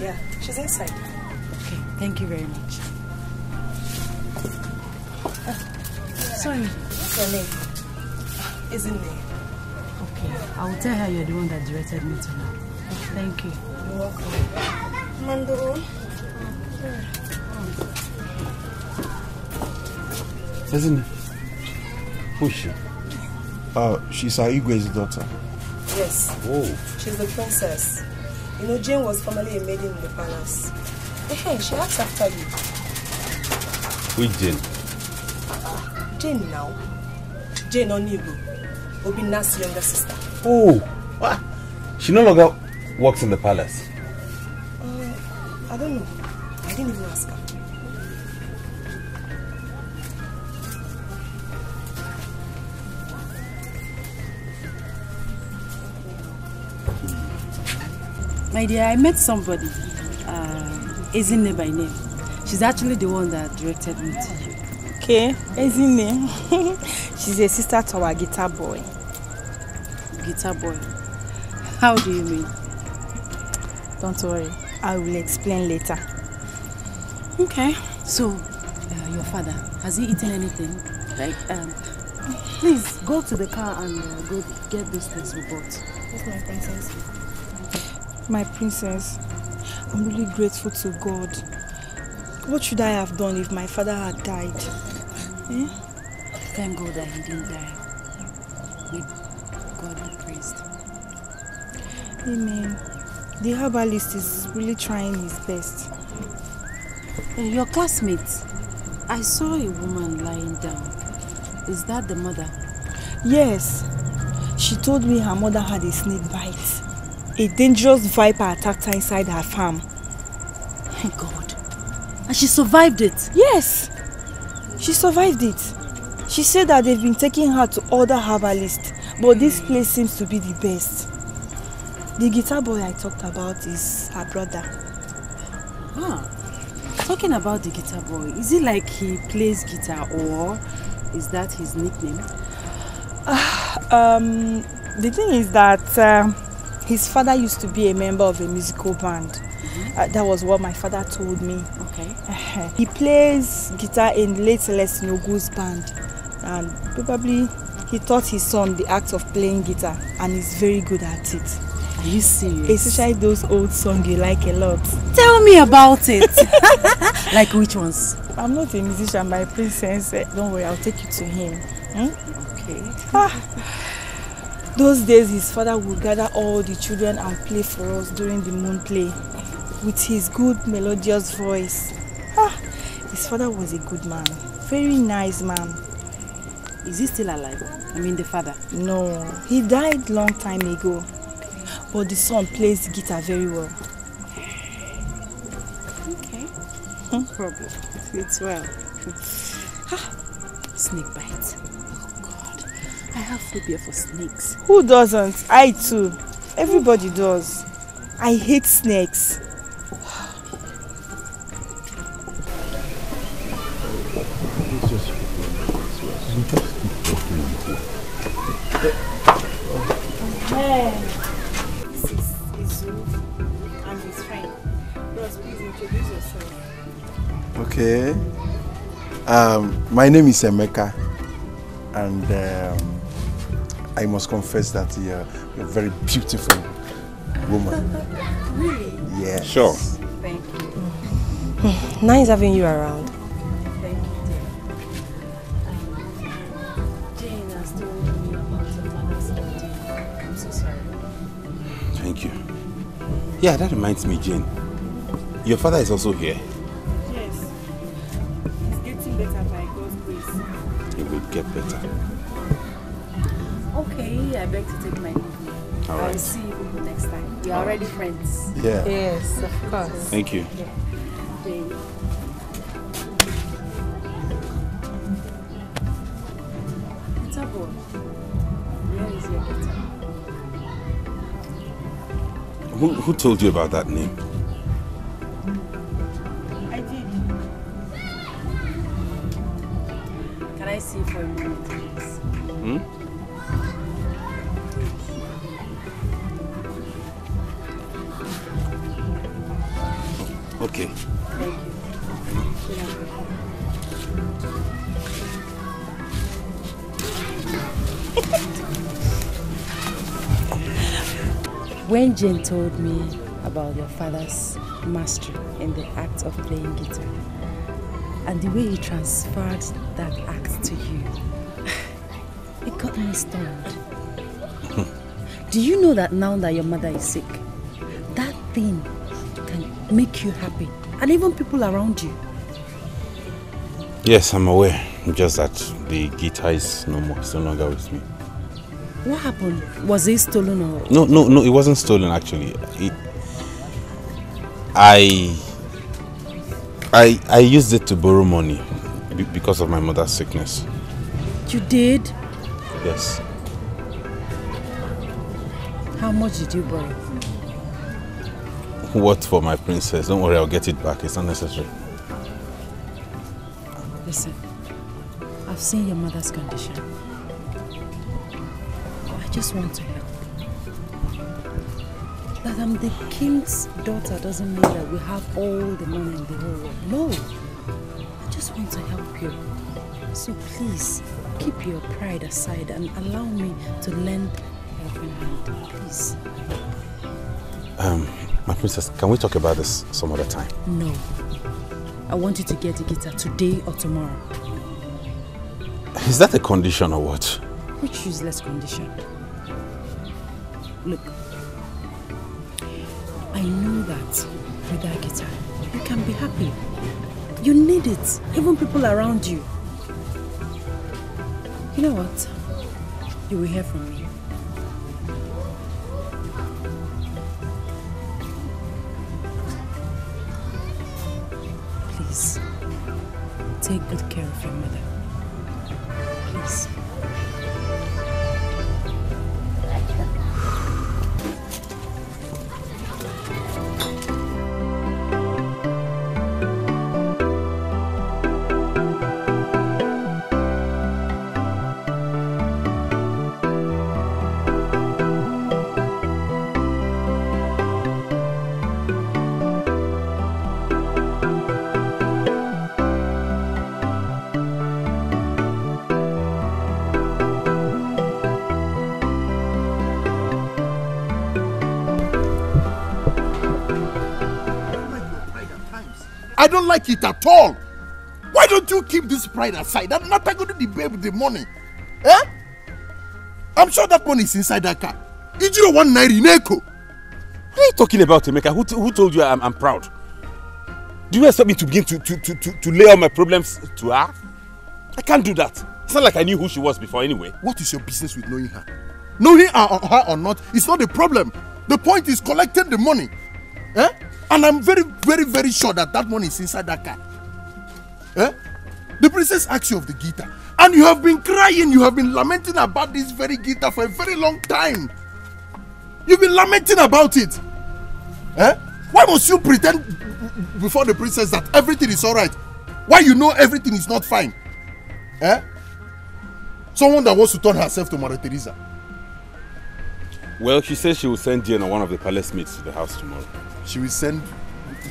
Yeah, she's inside. Okay, thank you very much. Uh, sorry. What's your name? isn't it? Okay, I will tell her you're the one that directed me to her. Thank you. You're welcome. Mandoro. Isn't it? Who's she? Uh, she's Aigwe's daughter. Yes. Oh, She's the princess. You know, Jane was formerly a maiden in the palace. Hey, she asked after you. With Jane? Jane now. Jane Onigo be Obina's younger sister. Oh, what? Ah, she no longer works in the palace. Uh, I don't know. I didn't even ask her. My dear, I met somebody, uh, Ezine by name. She's actually the one that directed me to you. Okay, it? [laughs] She's a sister to our guitar boy. Guitar boy? How do you mean? Don't worry, I will explain later. Okay. So, uh, your father, has he eaten anything? Like, um, please go to the car and uh, go get those things we bought. Yes, my princess. My princess, I'm really grateful to God. What should I have done if my father had died? Yeah? Thank God that he didn't die. We, God be praised. Amen. The herbalist is really trying his best. Uh, your classmate, I saw a woman lying down. Is that the mother? Yes. She told me her mother had a snake bite. A dangerous viper attacked her inside her farm. Thank God. And she survived it? Yes. She survived it. She said that they've been taking her to other herbalists, but this place seems to be the best. The guitar boy I talked about is her brother. Ah, talking about the guitar boy, is it like he plays guitar or is that his nickname? Uh, [sighs] um, the thing is that uh, his father used to be a member of a musical band. Mm -hmm. uh, that was what my father told me. Eh, he plays guitar in late Celeste Nogu's band, and probably he taught his son the act of playing guitar, and he's very good at it. Are you serious? Especially those old songs you like a lot. Tell me about it. [laughs] like which ones? I'm not a musician, my princess. Eh, don't worry, I'll take you to him. Hmm? Okay. Ah. Those days, his father would gather all the children and play for us during the moon play with his good melodious voice. Ah, his father was a good man, very nice man. Is he still alive? I mean the father? No, he died long time ago. But the son plays guitar very well. Okay, hmm? no problem. It's well. [laughs] ah, snake bite. Oh God, I have phobia for snakes. Who doesn't? I too. Everybody does. I hate snakes. Um, my name is Emeka, and um, I must confess that you're, you're a very beautiful woman. [laughs] really? Yes. Sure. Thank you. [sighs] Nice having you around. Thank you, dear. Jane has told me about body. I'm so sorry. Thank you. Yeah, that reminds me, Jane. Your father is also here. You're already friends. Yeah. Yes, of course. Thank you. Yeah. Thank you. Who, who told you about that name? Jane told me about your father's mastery in the act of playing guitar and the way he transferred that act to you. [laughs] It got me stunned. [laughs] Do you know that now that your mother is sick, that thing can make you happy and even people around you? Yes, I'm aware. Just that the guitar is no more, it's no longer with me. What happened? Was it stolen or? No, no, no. It wasn't stolen actually. It, I, I, I used it to borrow money because of my mother's sickness. You did? Yes. How much did you borrow? What for my princess? Don't worry, I'll get it back. It's not necessary. Listen, I've seen your mother's condition just want to help. That I'm the king's daughter doesn't mean that we have all the money in the whole world. No. I just want to help you. So please, keep your pride aside and allow me to lend helping hand, please. Um, my princess, can we talk about this some other time? No. I want you to get a guitar today or tomorrow. Is that a condition or what? Which useless condition? Look, I know that with that guitar, you can be happy. You need it, even people around you. You know what? You will hear from me. Please, take good care of your mother. don't like it at all. Why don't you keep this pride aside? I'm not going to debate with the money. Eh? I'm sure that money is inside that car. Ijiro one naira in echo. What are you talking about, Emeka? Who, who told you I'm, I'm proud? Do you expect me to begin to, to, to, to, to lay all my problems to her? I can't do that. It's not like I knew who she was before anyway. What is your business with knowing her? Knowing her or, her or not, it's not a problem. The point is collecting the money. Eh? And I'm very, very, very sure that that money is inside that car. Eh? The princess asks you of the guitar. And you have been crying, you have been lamenting about this very guitar for a very long time. You've been lamenting about it. Eh? Why must you pretend before the princess that everything is all right? Why you know everything is not fine? Eh? Someone that wants to turn herself to Mother Teresa. Well, she says she will send Diana, one of the palace maids to the house tomorrow. She will send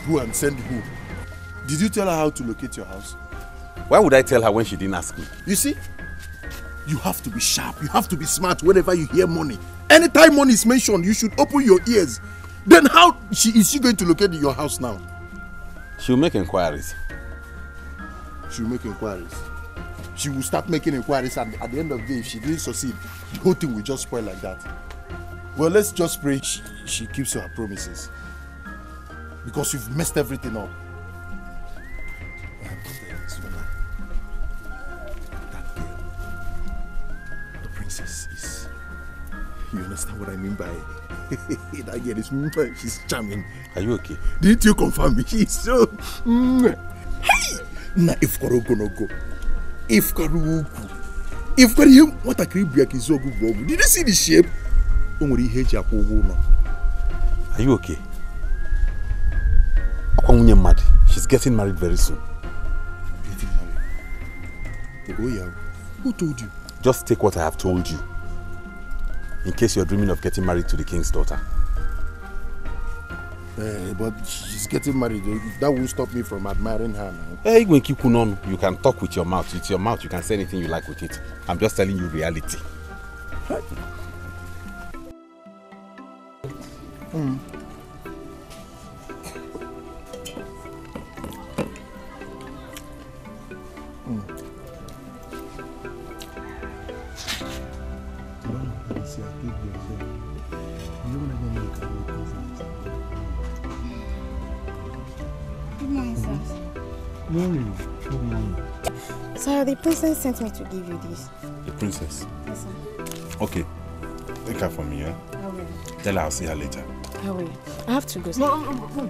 who and send who. Did you tell her how to locate your house? Why would I tell her when she didn't ask me? You see, you have to be sharp. You have to be smart whenever you hear money. Anytime money is mentioned, you should open your ears. Then how she, is she going to locate your house now? She'll make inquiries. She'll make inquiries. She will start making inquiries and at the end of the day, if she didn't succeed, the whole thing will just spoil like that. Well, let's just pray she, she keeps her promises. because you've messed everything up. That girl, the princess is. You understand what I mean by [laughs] that girl is [laughs] she's charming. Are you okay? Did you confirm me? [laughs] She's so mm. hey! na ifukọrọ ogologo ifukọrọ ukwu ifukọrọ ihe nwatakịrị bụ ya ka izu ogwu bụ ogwu did you see the shape o nwere ihe are you okay Akwa nwunye She's getting married very soon. Getting married? Who told you? Just take what I have told you. In case you're dreaming of getting married to the king's daughter. Uh, but she's getting married. That won't stop me from admiring her now. Hey, eh, Gwenkiku, you can talk with your mouth. With your mouth, you can say anything you like with it. I'm just telling you reality. Right. Mm. Really? No oh, money. Sir, the princess sent me to give you this. The princess? Yes, sir. Okay. Take her for me, yeah? I will. Tell her I'll see her later. I will. I have to go, sir. No, no, no.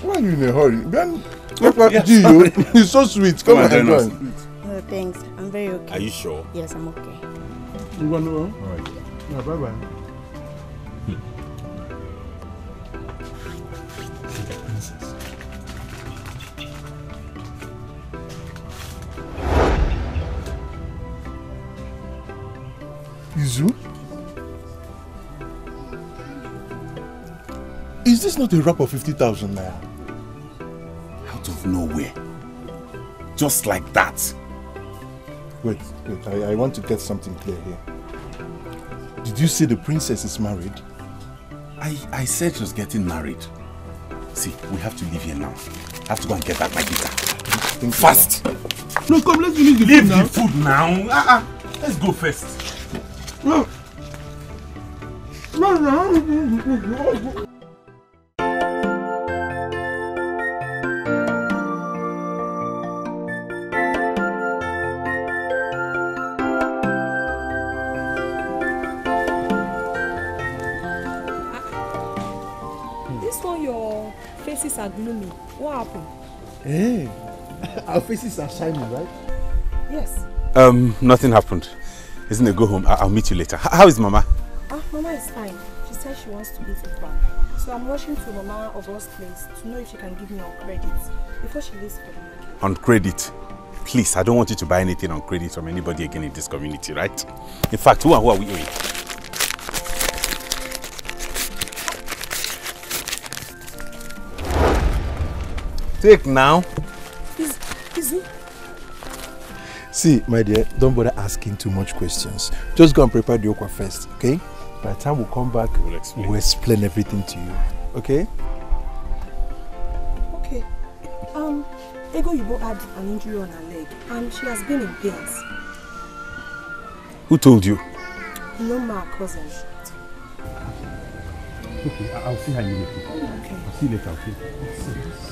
Why are you in a hurry? Ben, look what yes, you do. He's so sweet. Come, Come on, join. No, thanks. I'm very okay. Are you sure? Yes, I'm okay. You want to go? All right. Yeah, bye-bye. is not a wrap of 50,000 naira. Out of nowhere. Just like that. Wait, wait, I, I want to get something clear here. Did you say the princess is married? I, I said she was getting married. See, we have to leave here now. I have to go and get back my guitar. Think Fast! No, come, let's finish the leave food now. the food now. Uh -uh. Let's go first. No. No, no. Hey, [laughs] our faces are shining, right? Yes. Um, nothing happened. Isn't it? Go home. I will meet you later. how is Mama? Ah, Mama is fine. She said she wants to eat with Mama. So I'm rushing to Mama of us place to know if she can give me on credit before she leaves for the market. On credit? Please, I don't want you to buy anything on credit from anybody again in this community, right? In fact, who are, who are we owing? Take now. Is, is it? See, my dear, don't bother asking too much questions. Just go and prepare the okwa first, okay? By the time we come back, we'll explain, we'll explain everything to you, okay? Okay. Um, Ego Yubo had an injury on her leg, and she has been in pains. Who told you? No, my cousin. Okay, I'll see her immediately. Okay. I'll see you later, okay?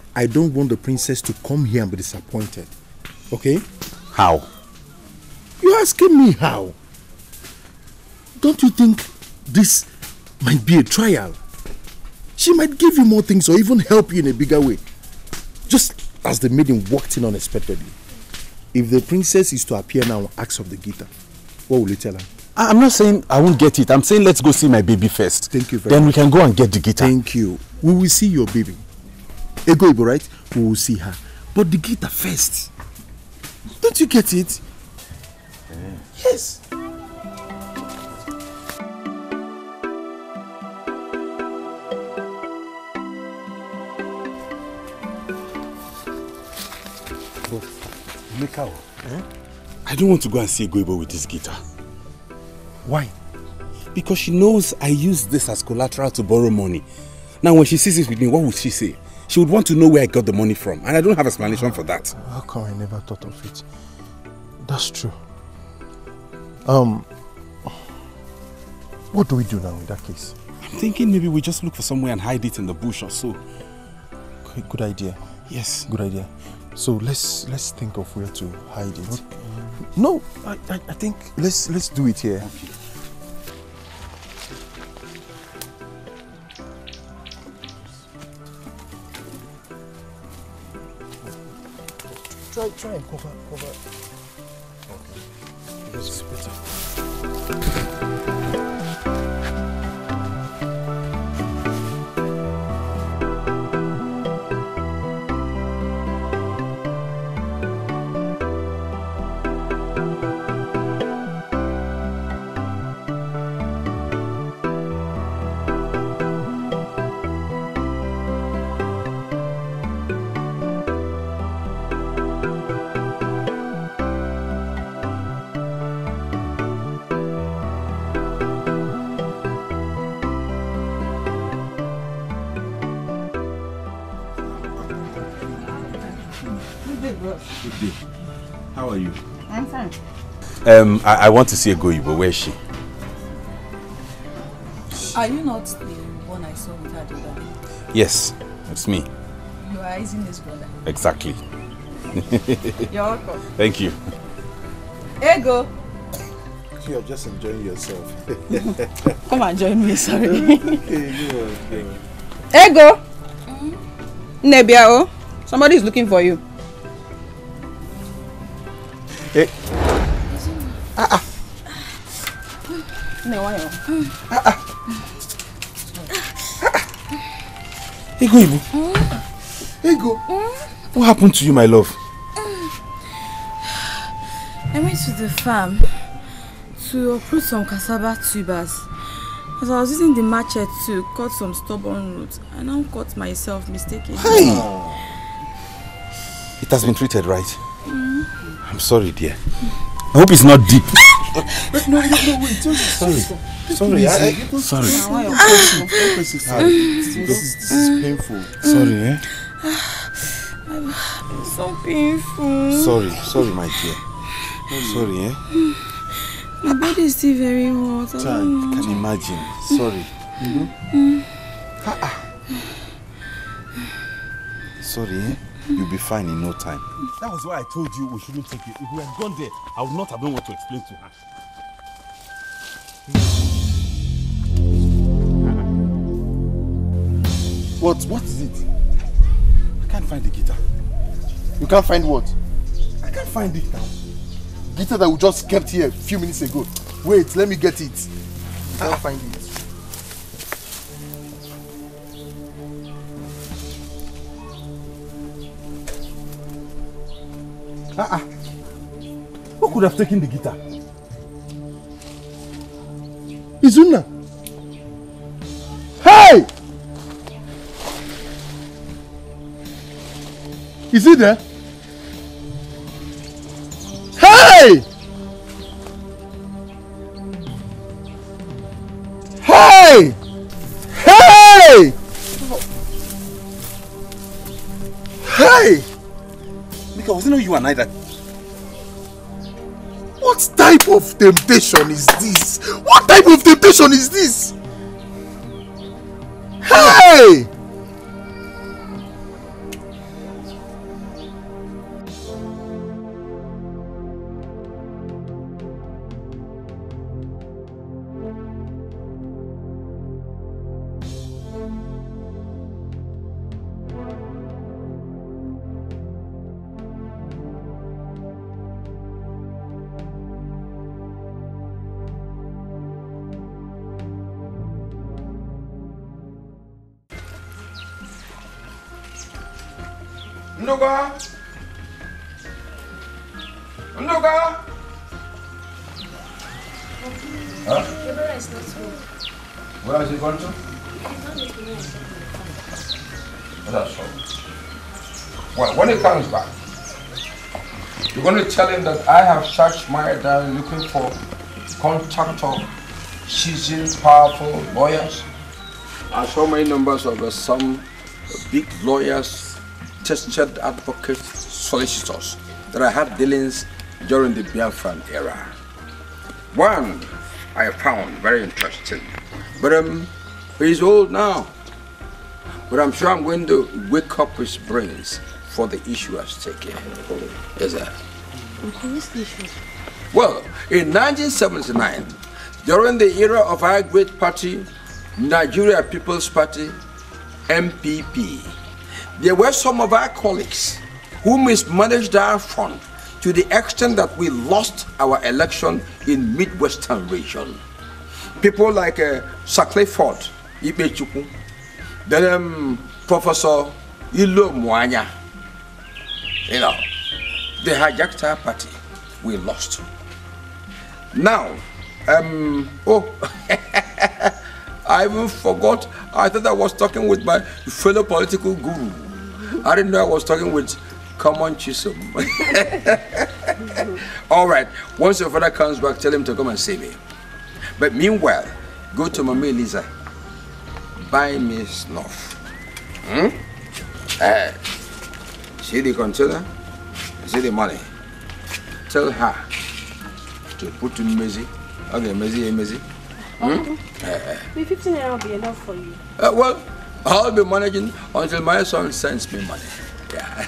I don't want the princess to come here and be disappointed. Okay? How? You're asking me how? Don't you think this might be a trial? She might give you more things or even help you in a bigger way. Just as the maiden walked in unexpectedly. If the princess is to appear now and ask of the guitar, what will you tell her? I'm not saying I won't get it. I'm saying let's go see my baby first. Thank you Then much. we can go and get the guitar. Thank you. We will see your baby. Egoibo, right? We will see her. But the guitar first. Don't you get it? Mm. Yes. Mikao, oh. eh? I don't want to go and see Goibo with this guitar. Why? Because she knows I use this as collateral to borrow money. Now when she sees it with me, what would she say? She would want to know where I got the money from, and I don't have explanation for that. How come I never thought of it? That's true. Um, what do we do now in that case? I'm thinking maybe we just look for somewhere and hide it in the bush or so. Good idea. Yes. Good idea. So let's let's think of where to hide it. Okay. No, I, I, I think let's let's do it here. Okay. like try and cover, cover. Okay. Because it's better. How are you? I'm fine. Um, I, I want to see a Goyibo. Where is she? Are you not the one I saw with her the other day? Yes, it's me. You are Isin's brother. Exactly. [laughs] You're welcome. Thank you. Ego. You're just enjoying yourself. [laughs] Come and join me, sorry. [laughs] Ego. Hmm? Nebiao, oh. somebody is looking for you. Eh. Ah ah. Me wa yo. Ah ah. Ego Ibu. Ego. What happened to you, my love? I went to the farm to uproot some cassava tubers. As I was using the machete to cut some stubborn roots, I now cut myself mistakenly. Hey! It has been treated, right? Mm -hmm. I'm sorry, dear. I hope it's not deep. no, no, no, wait. Just sorry. Sorry. Sorry. I, I, sorry. Ah. Ah, this is painful. Sorry, eh? It's [sighs] so painful. Sorry. Sorry, my dear. Sorry, eh? My body is still very hot. I can mm. imagine. Sorry. Mm -hmm. ah. Sorry, eh? You'll be fine in no time. That was why I told you we shouldn't take it. If we had gone there, I would not have known what to explain to her. What? What is it? I can't find the guitar. You can't find what? I can't find it now. Guitar that we just kept here a few minutes ago. Wait, let me get it. I can't ah. find it. Ah, ah. Who could have taken the guitar? Izuna! Hey! Is he there? overnight. What type of temptation is this? What type of temptation is this? Hey! tell him that I have searched my diary looking for contact of seasoned, powerful lawyers. I saw many numbers of uh, some big lawyers, tested advocates, solicitors that I had dealings during the Biafran era. One I found very interesting, but um, he's old now. But I'm sure I'm going to wake up his brains for the issue at stake. Is that? Well, in 1979, during the era of our great party, Nigeria People's Party, MPP, there were some of our colleagues who mismanaged our fund to the extent that we lost our election in Midwestern region. People like uh, Sir Ibechukwu, then um, Professor Ilo Mwanya, you know, the hijacked party. We lost. Now, um, oh, [laughs] I even forgot. I thought I was talking with my fellow political guru. I didn't know I was talking with common Chisholm. [laughs] All right, once your father comes back, tell him to come and see me. But meanwhile, go to Mama Lisa. Buy me snuff. Hmm? Uh, see the container? the money. Tell her to put in Mezi. Okay, Mezi, eh, Mezi. Hmm? Uh, 15 naira will be enough for you. Uh, well, I'll be managing until my son sends me money. Yeah.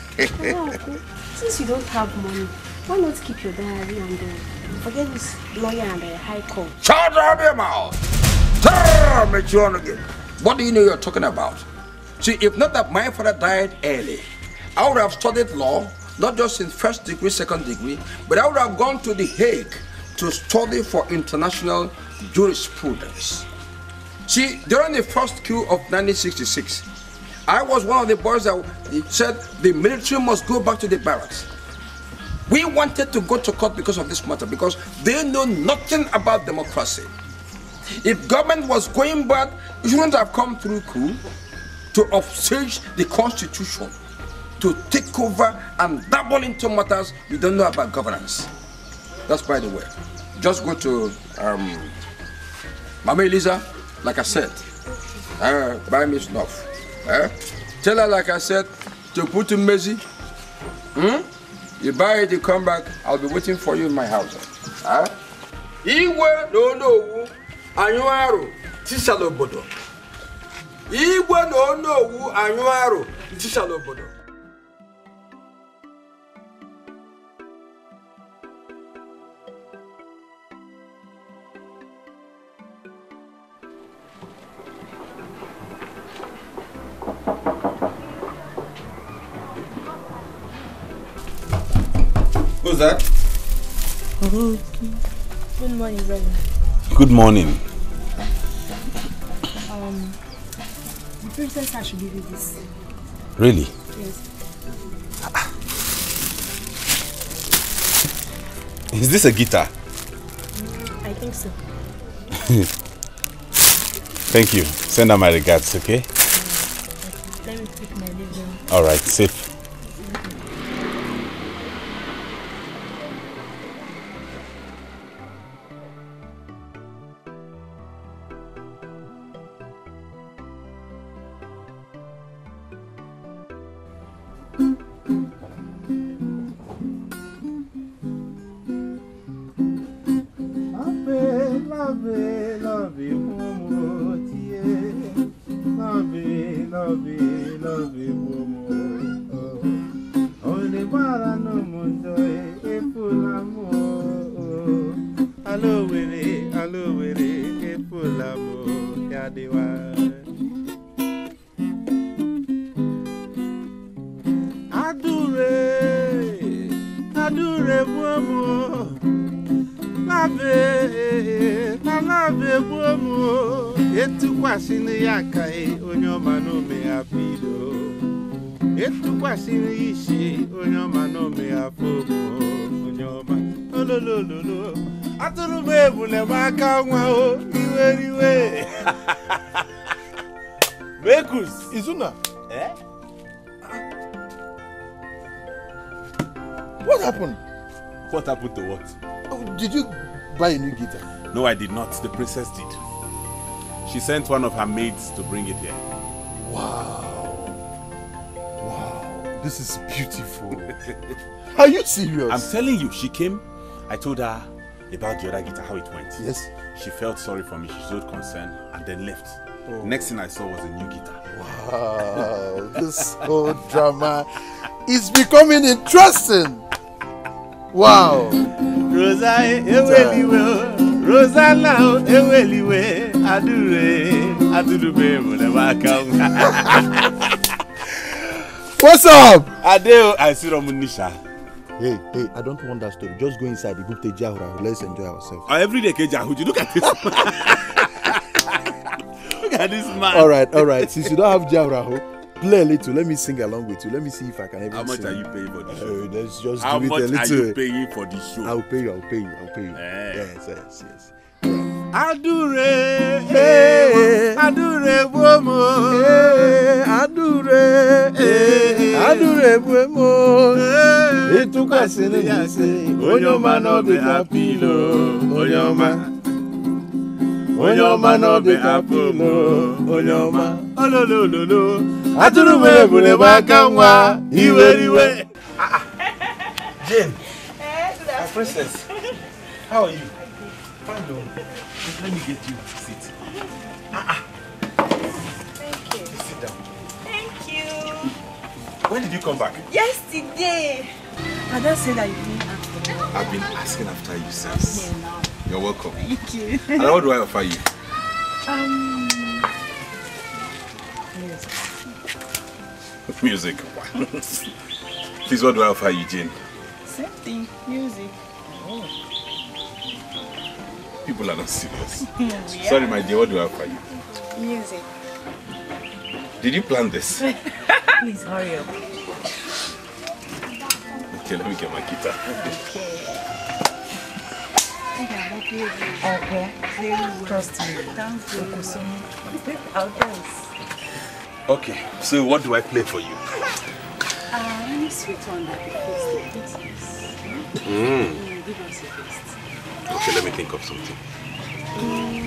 Oh, since you don't have money, why not keep your diary and uh, forget this lawyer and the uh, high court? Shut up your mouth! Tell me, again. What do you know you're talking about? See, if not that my father died early, I would have studied law not just in first degree, second degree, but I would have gone to The Hague to study for international jurisprudence. See, during the first coup of 1966, I was one of the boys that said the military must go back to the barracks. We wanted to go to court because of this matter, because they know nothing about democracy. If government was going bad, it shouldn't have come through coup to upstage the constitution. to take over and double into matters we don't know about governance. That's by the way. Just go to um, Mama Elisa, like I said, uh, buy me snuff. Uh, tell her, like I said, to put in Mezi. Hmm? You buy it, you come back, I'll be waiting for you in my house. Huh? Eh? Iwe no no anyuaru tisalobodo. Iwe no no anyuaru tisalobodo. Who's that? Good morning, brother. Good morning. Um, the princess has to give you this. Really? Yes. Is this a guitar? Mm, I think so. [laughs] Thank you. Send her my regards, okay? Let me take my leave All right, safe. No, I did not. The princess did. She sent one of her maids to bring it here. Wow. Wow. This is beautiful. [laughs] Are you serious? I'm telling you, she came. I told her about the other guitar, how it went. Yes. She felt sorry for me. She showed concern and then left. Oh. Next thing I saw was a new guitar. Wow, [laughs] this whole drama is becoming interesting. Wow. Rosa, Rosanna eweliwe adure adurube mulebaka. What's up? Adeo Asiromu Nisha. Hey, hey, I don't want that story. Just go inside the Gupte Jahura. Let's enjoy ourselves. Oh, every day, Kejahuji. Look at this. [laughs] Look at this man. All right, all right. Since you don't have Jahura, hope play a little. Let me sing along with you. Let me see if I can even How much sing. are you paying for the oh, show? Uh, let's just How do it a little. How much are you paying for the show? I'll pay you. I'll pay you. I'll pay you. Eh. Yes, yes, yes. Adure, eh, adure buomo, eh, adure, eh, adure buomo. Eh. Ituka sini yase, onyoma no be apilo, onyoma. Onyoma no be apilo, onyoma. Ololololo atụrụ m ebule m aka nwa iweriwe ah, ah. Jane, my princess, how are you? Fine, though. Let me get you a seat. Ah, Thank you. Sit down. Thank you. When did you come back? Yesterday. Ada said that you didn't ask me. I've been asking after you since. You're welcome. Thank you. And what do I offer you? Um, music. Please, what do I offer Eugene? Same thing, music. Oh. People are not serious. [laughs] yeah. Sorry, my dear, what do I offer you? Music. Did you plan this? [laughs] Please hurry up. Okay, let me get my guitar. Okay. Okay. Trust me. Thank you. I'll dance. Okay, so what do I play for you? Uh, any sweet one that please. Hmm. Mm. Give us a taste. Okay, let me think of something. Mm.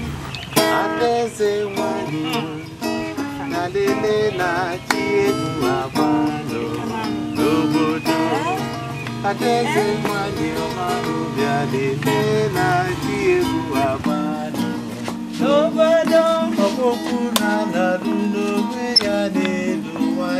Obodo ọkpụkpụ n'ala ruo n'onwe ya n'elu nwa